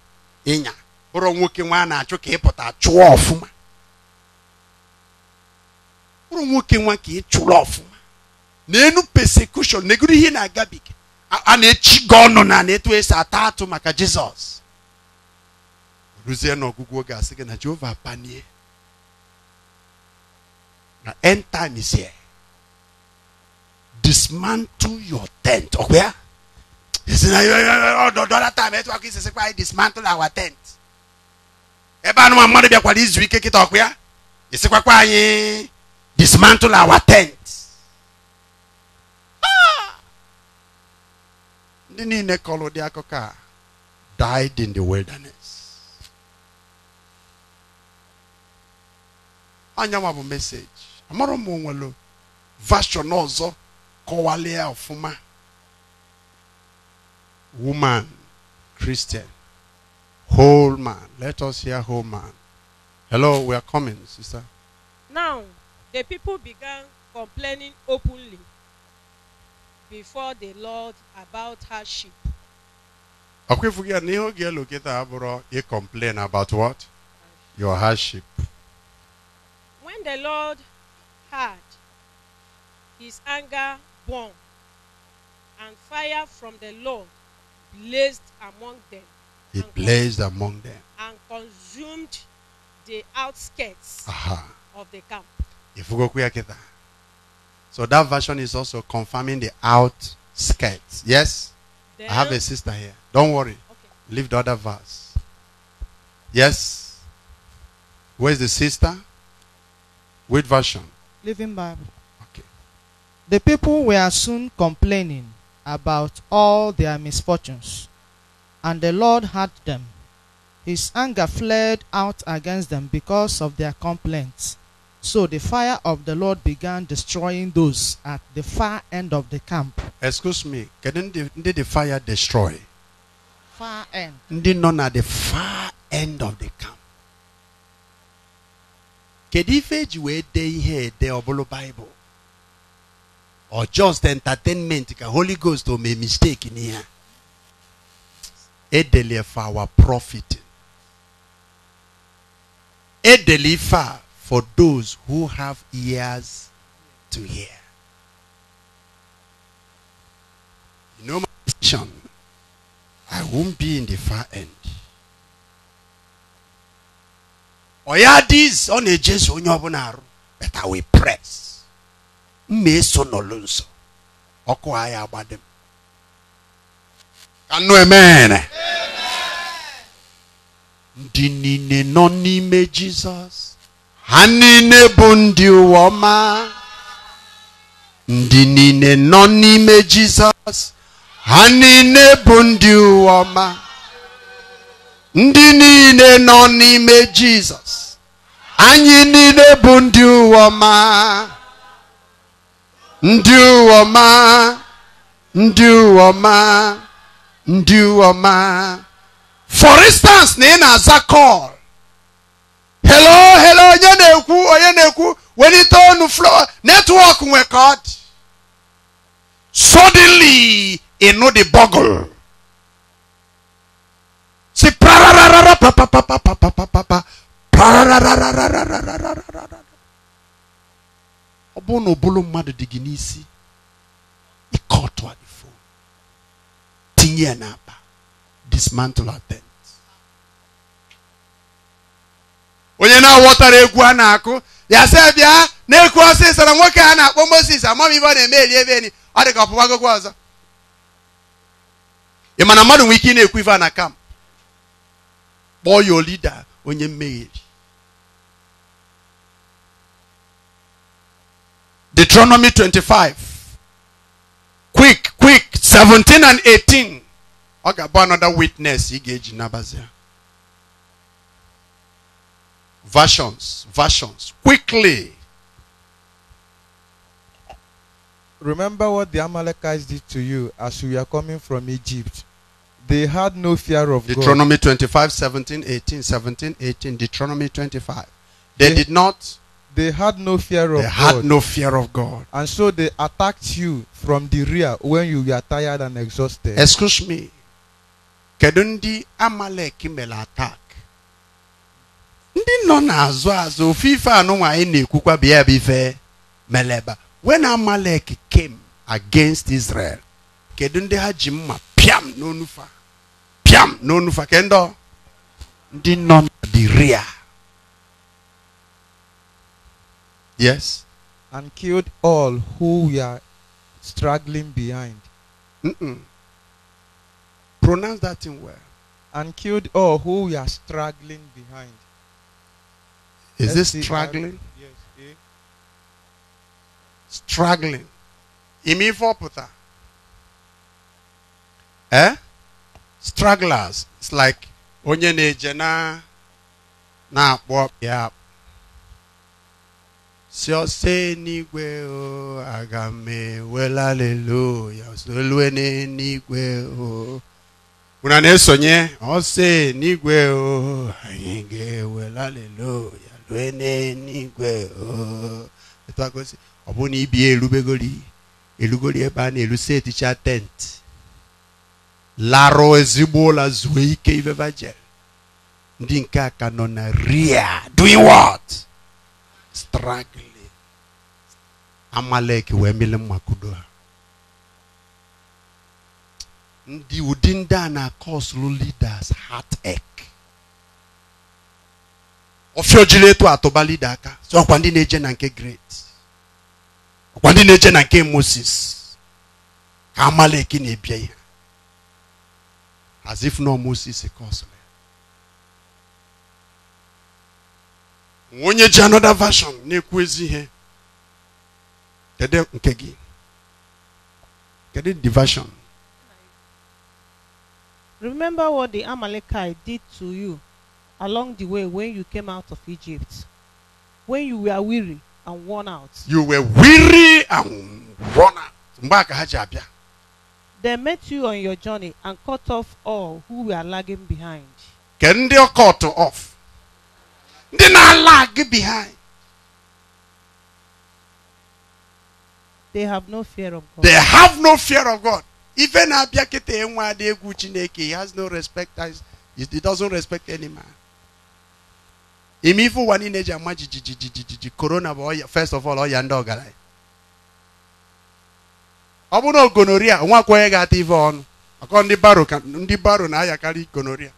ịnya bụrụ nwoke nwa a na-achụ ka ịpụta chụọ ọfụma bụrụ nwoke nwa ka ị chụrụ ọfụma n'enu persekushon negoro ihe na-agabiga a na-echi gị ọnụ na na-etu esi ata atụ maka jizọs ruzie n'ọgwụgwụ oge asị gị na jehova panie na end time is here dismantle your tent ọ̀pẹ́ à ìsìn ọ̀dọ̀dọ̀ látà mẹ́tò wá kí ìsìn sípa dismantle our tent ẹ bá nu amadu bí akwadi izu ike kíta ọ̀pẹ́ à ìsìn pápá yín dismantle our tent ndị niile kọrọ ụdị akụkọ a died in the wilderness anyanwụ bụ meseji amarụ m onwelu vashon ọzọ Kowale Ofuma. Woman, Christian, whole man. Let us hear whole man. Hello, we are coming, sister. Now, the people began complaining openly before the Lord about hardship. Akwifugia niho gia loketa aburo you complain about what? Your hardship. When the Lord heard, his anger born, and fire from the Lord blazed among them. It blazed among them. And consumed the outskirts Aha. of the camp. So that version is also confirming the outskirts. Yes? Then, I have a sister here. Don't worry. Okay. Leave the other verse. Yes? Where's the sister? Which version? Living Bible. The people were soon complaining about all their misfortunes, and the Lord heard them. His anger flared out against them because of their complaints. So the fire of the Lord began destroying those at the far end of the camp. Excuse me, did the, the fire destroy? Far end. Did none at the far end of the camp. Kedu ife eji wee dee Bible? or just entertainment The holy ghost o make mistake in here edeli for our profit edeli for for those who have ears to hear you know my i won't be in the far end oya this on a Jesus onye ọbụla arụ but i will press mma eso nọlụ nso ọkụ agha agbadem ka nnu ndị niile nọ n'ime jizọs ha niile bụ ndị ụwa ọma ndị niile nọ n'ime jizọs ha niile bụ ndị ụwa ọma ndị niile nọ n'ime jizọs anyị niile bụ ndị ụwa ọma ndị ọma ndị ọma ndị ọma for instance na ị na-aza call hello hello onye na-ekwu onye na-ekwu welite ọnụ floor network nwe ka ọ dị suddenly ịnụ the bugle si pa pa pa bụ na ụbụrụ mmadụ dị gị n'isi ịkọtụ ifo tinye ya n'akpa dismantle atent onye na-aghọtara egwu a na-akụ ya sị bịa na-ekwu ọsịsọ na nwoke a na-akpọ mosis amam ibe ọ na-eme eli ebe enyi ọ dị ka ọpụpa agogo ọzọ ị ma na mmadụ nwere ike ị na-ekwu ife na kamp kpọọ ya olida onye mmeheri Deuteronomy 25. Quick, quick. 17 and 18. I got another witness. he Igage Nabazia. Versions, versions. Quickly. Remember what the Amalekites did to you as you were coming from Egypt. They had no fear of Deuteronomy God. 25, 17, 18, 17, 18. Deuteronomy 25. They, they did not they had no fear of they God. They had no fear of God. And so they attacked you from the rear when you were tired and exhausted. Excuse me. Kedu ndị Amalek mere attack? Ndị nọ n'azụ azụ ofufe anụnwa bịa meleba. When Amalek came against Israel, kedu ndị ha ji mma pịam n'onufa? Pịam n'onufa kendo. ndị nọ the rear. Yes. And killed all who were struggling behind. Mm -mm. Pronounce that thing well. And killed all who were struggling behind. Is this struggling? Yes. Eh? Imi Imifopota. Eh? Stragglers. It's like onye na-eje na na na akpo ya si ọsọ n'igwe o aga m ewelaleluya solue n'igwe o unu na-esonye ọsọ n'igwe o anyị ga-ewelaleluya lue n'igwe o ọ bụrụ na ibi erubegori erugori ebe a na-erusi e eticha e tent larụ ezigbo ụlọ zuo ike ivevajel ndị nke a nọ na ria doing what struggling amalek wee mele mmakudo ndị ụdị ndị a na-akọsụlụ leaders heartache ọfịa ojiri atụba leader aka so ọkwa ndị na-eje na nke great ọkwa ndị na-eje na nke moses ka amalek na-ebie ya as if no moses kọsụrụ onye ji another version na-ekwu ezi ihe the version Remember what the Amalekite did to you along the way when you came out of Egypt, when you were weary and worn out. You were weary and worn out. They met you on your journey and cut off all who were lagging behind. Can they cut off? ndị na-ala gị behind. They have no fear of God. They have no fear of God. Even abịa kịta enwe adị egwu Chineke, he has no respect as he doesn't respect any man. Ime ifu ụwa niile eji ama jijijijiji korona bụ ọya first of all ọya ndị ọgaranya. Ọ bụ na ogonoria nwa akwụkwọ ya ga-ata ife ọnụ akọ ndị baro ka ndị baro na-ayakarị gonoria.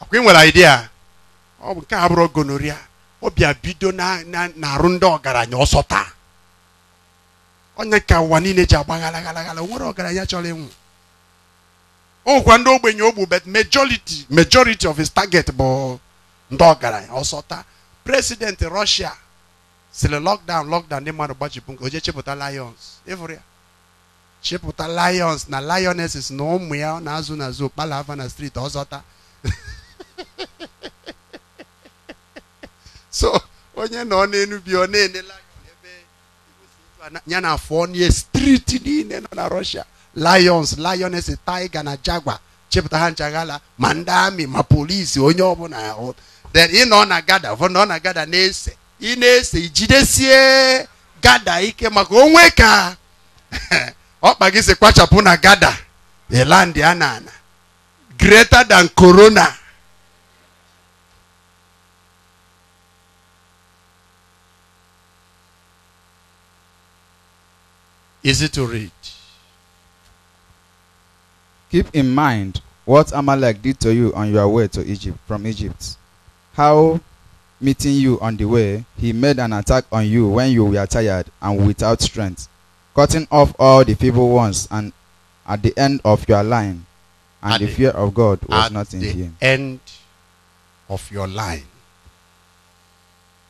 Akwa ị nwere idea ọ bụ nke abụrụ gonoria ọ bịa bido na-arụ ndị ọgaranya ọsọ taa onye ka ụwa niile ji agba ghalaghalaghala o nwere ọgaranya chọrọ ịnwụ ọkwa ndị ogbenye ogbu but majority majority of his target bụ ndị ọgaranya ọsọ taa president Russia sịrị lockdown lockdown ndị mmadụ gbajibu nke oje chepụta lions ịfụrụ ya chepụta lions na lionesses na ụmụ ya na-azụ n'azụ okpala ava na street ọzọta so onye nọ n'elu bi ọ na-enela ebe ya na afọ nye striti niile nọ na Russia lions lioness tiger na jaguar chepụta ha nchaghala ma ndị amị ma polisi onye ọbụla ahụ then ị nọ na gada ọ nọ na gada na-ese ị na-ese ijidesie gada ike maka onwe ka ọkpa gị si kwachapụ na gada elandị a na ana greater than corona easy to read. Keep in mind what Amalek did to you on your way to Egypt from Egypt. How meeting you on the way, he made an attack on you when you were tired and without strength, cutting off all the feeble ones and at the end of your line, and the, the, fear of God was not in him. End of your line.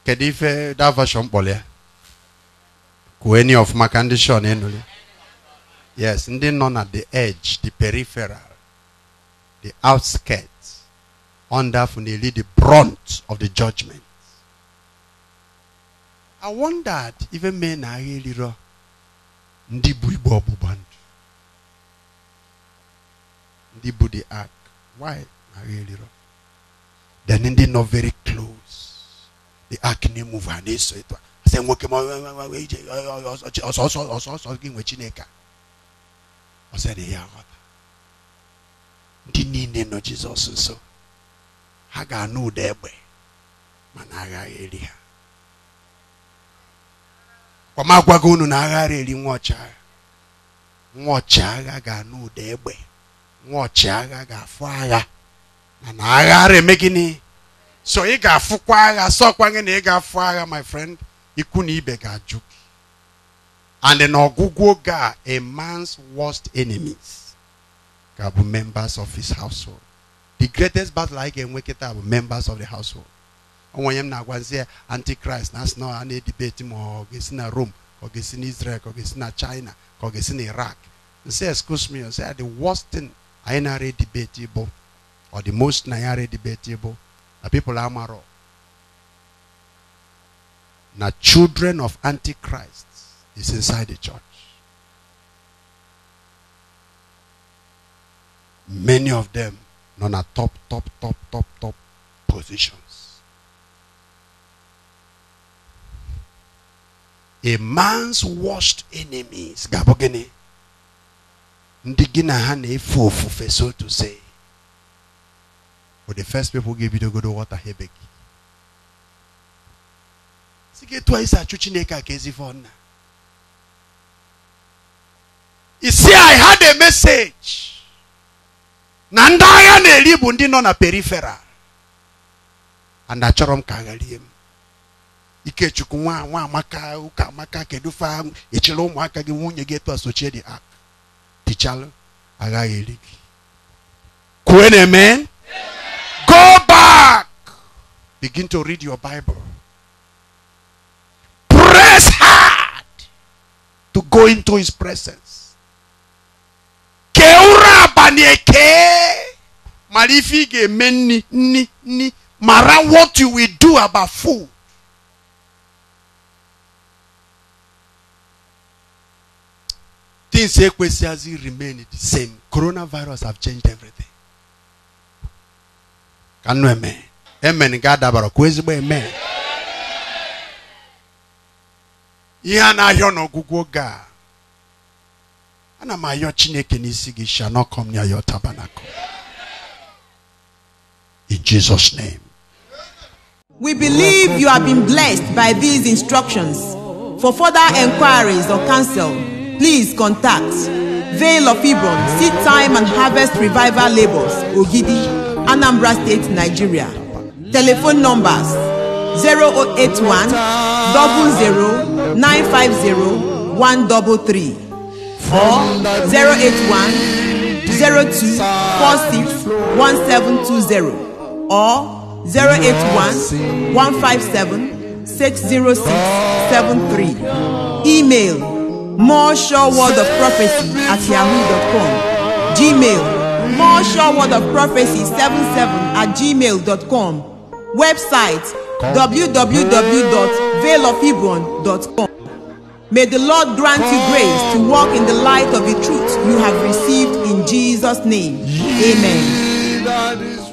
Kedu that version any of my condition ndị shọn enuli yes ndị nọ the edge the peripheral the outskirts under finally the brunt of the judgment i wondered if men are agha eliro the bụ igbe ọgbụgba ndụ ndị the ark why really agha They're ndị very close the ark name emuve ha so it was. eze nwoke ma ije ọsọsọ ọsọsọ gị nwe chineke ọ ya nghọta ndị niile nọ jizọs nso ha ga-anụ ụda egbe mana aghaghị eri ha ọmagwago unu na aghara eri nwa ọchịagha nwa ọchịagha ga-anụ ụda egbe nwa ọchịagha ga-afụ agha na aghara eme gịnị so ị ga-afụkwa agha sọkwa gị na ị ga-afụ agha my friend ikwu na ibe ga-ajụ and n'ọgwụgwụ oge a man's worst enemies ga members of his household the greatest battle I can wake it up members of the household onwe onye na-agwazi antichrist that's not na debate na-edibeti ma rome ka israel ka o china ka o Iraq. ga-esi iraq say excuse me say the worst thing I na na-ara or the most na ya the people are na now, children of Antichrist is inside the church. Many of them not a top, top, top, top, top positions. A man's worst enemies, Gabogene, Ndigina Hane Fufu, so to say. For the first people give you the good water, Hebeki si gị etu chuchineka esi achụ chineke a i had a message na ndị agha na-eri bụ ndị nọ na periferal and achọrọ m ka agharie m ikechukwu nwa ụka amaka kedu fa echere ụmụaka gị nwunye gị etu dị ak ah, Tichalo aga eri gị kwue go back begin to read your bible to go into his presence. Keura banieke. Marifige meni ni ni. ni. Mara what you will do about food. Things equally remain the same. Coronavirus have changed everything. Can you amen? Amen. God abaro. Kwezbo amen. amen. ihe a na oge a ana m ayọ chineke n'isi gị shall not come near your tabernacle in jesus name we believe you have been blessed by these instructions for further enquiries or counsel please contact veil of ibon seed time and harvest revival labors ogidi anambra state nigeria telephone numbers zero eight one double zero. 950 133 or 081 or 081 157 60673. Email more sure word of prophecy at yahoo.com. Gmail more sure word of prophecy 77 at gmail.com. Website www.veilofhebron.com. May the Lord grant you grace to walk in the light of the truth you have received in Jesus' name. Amen.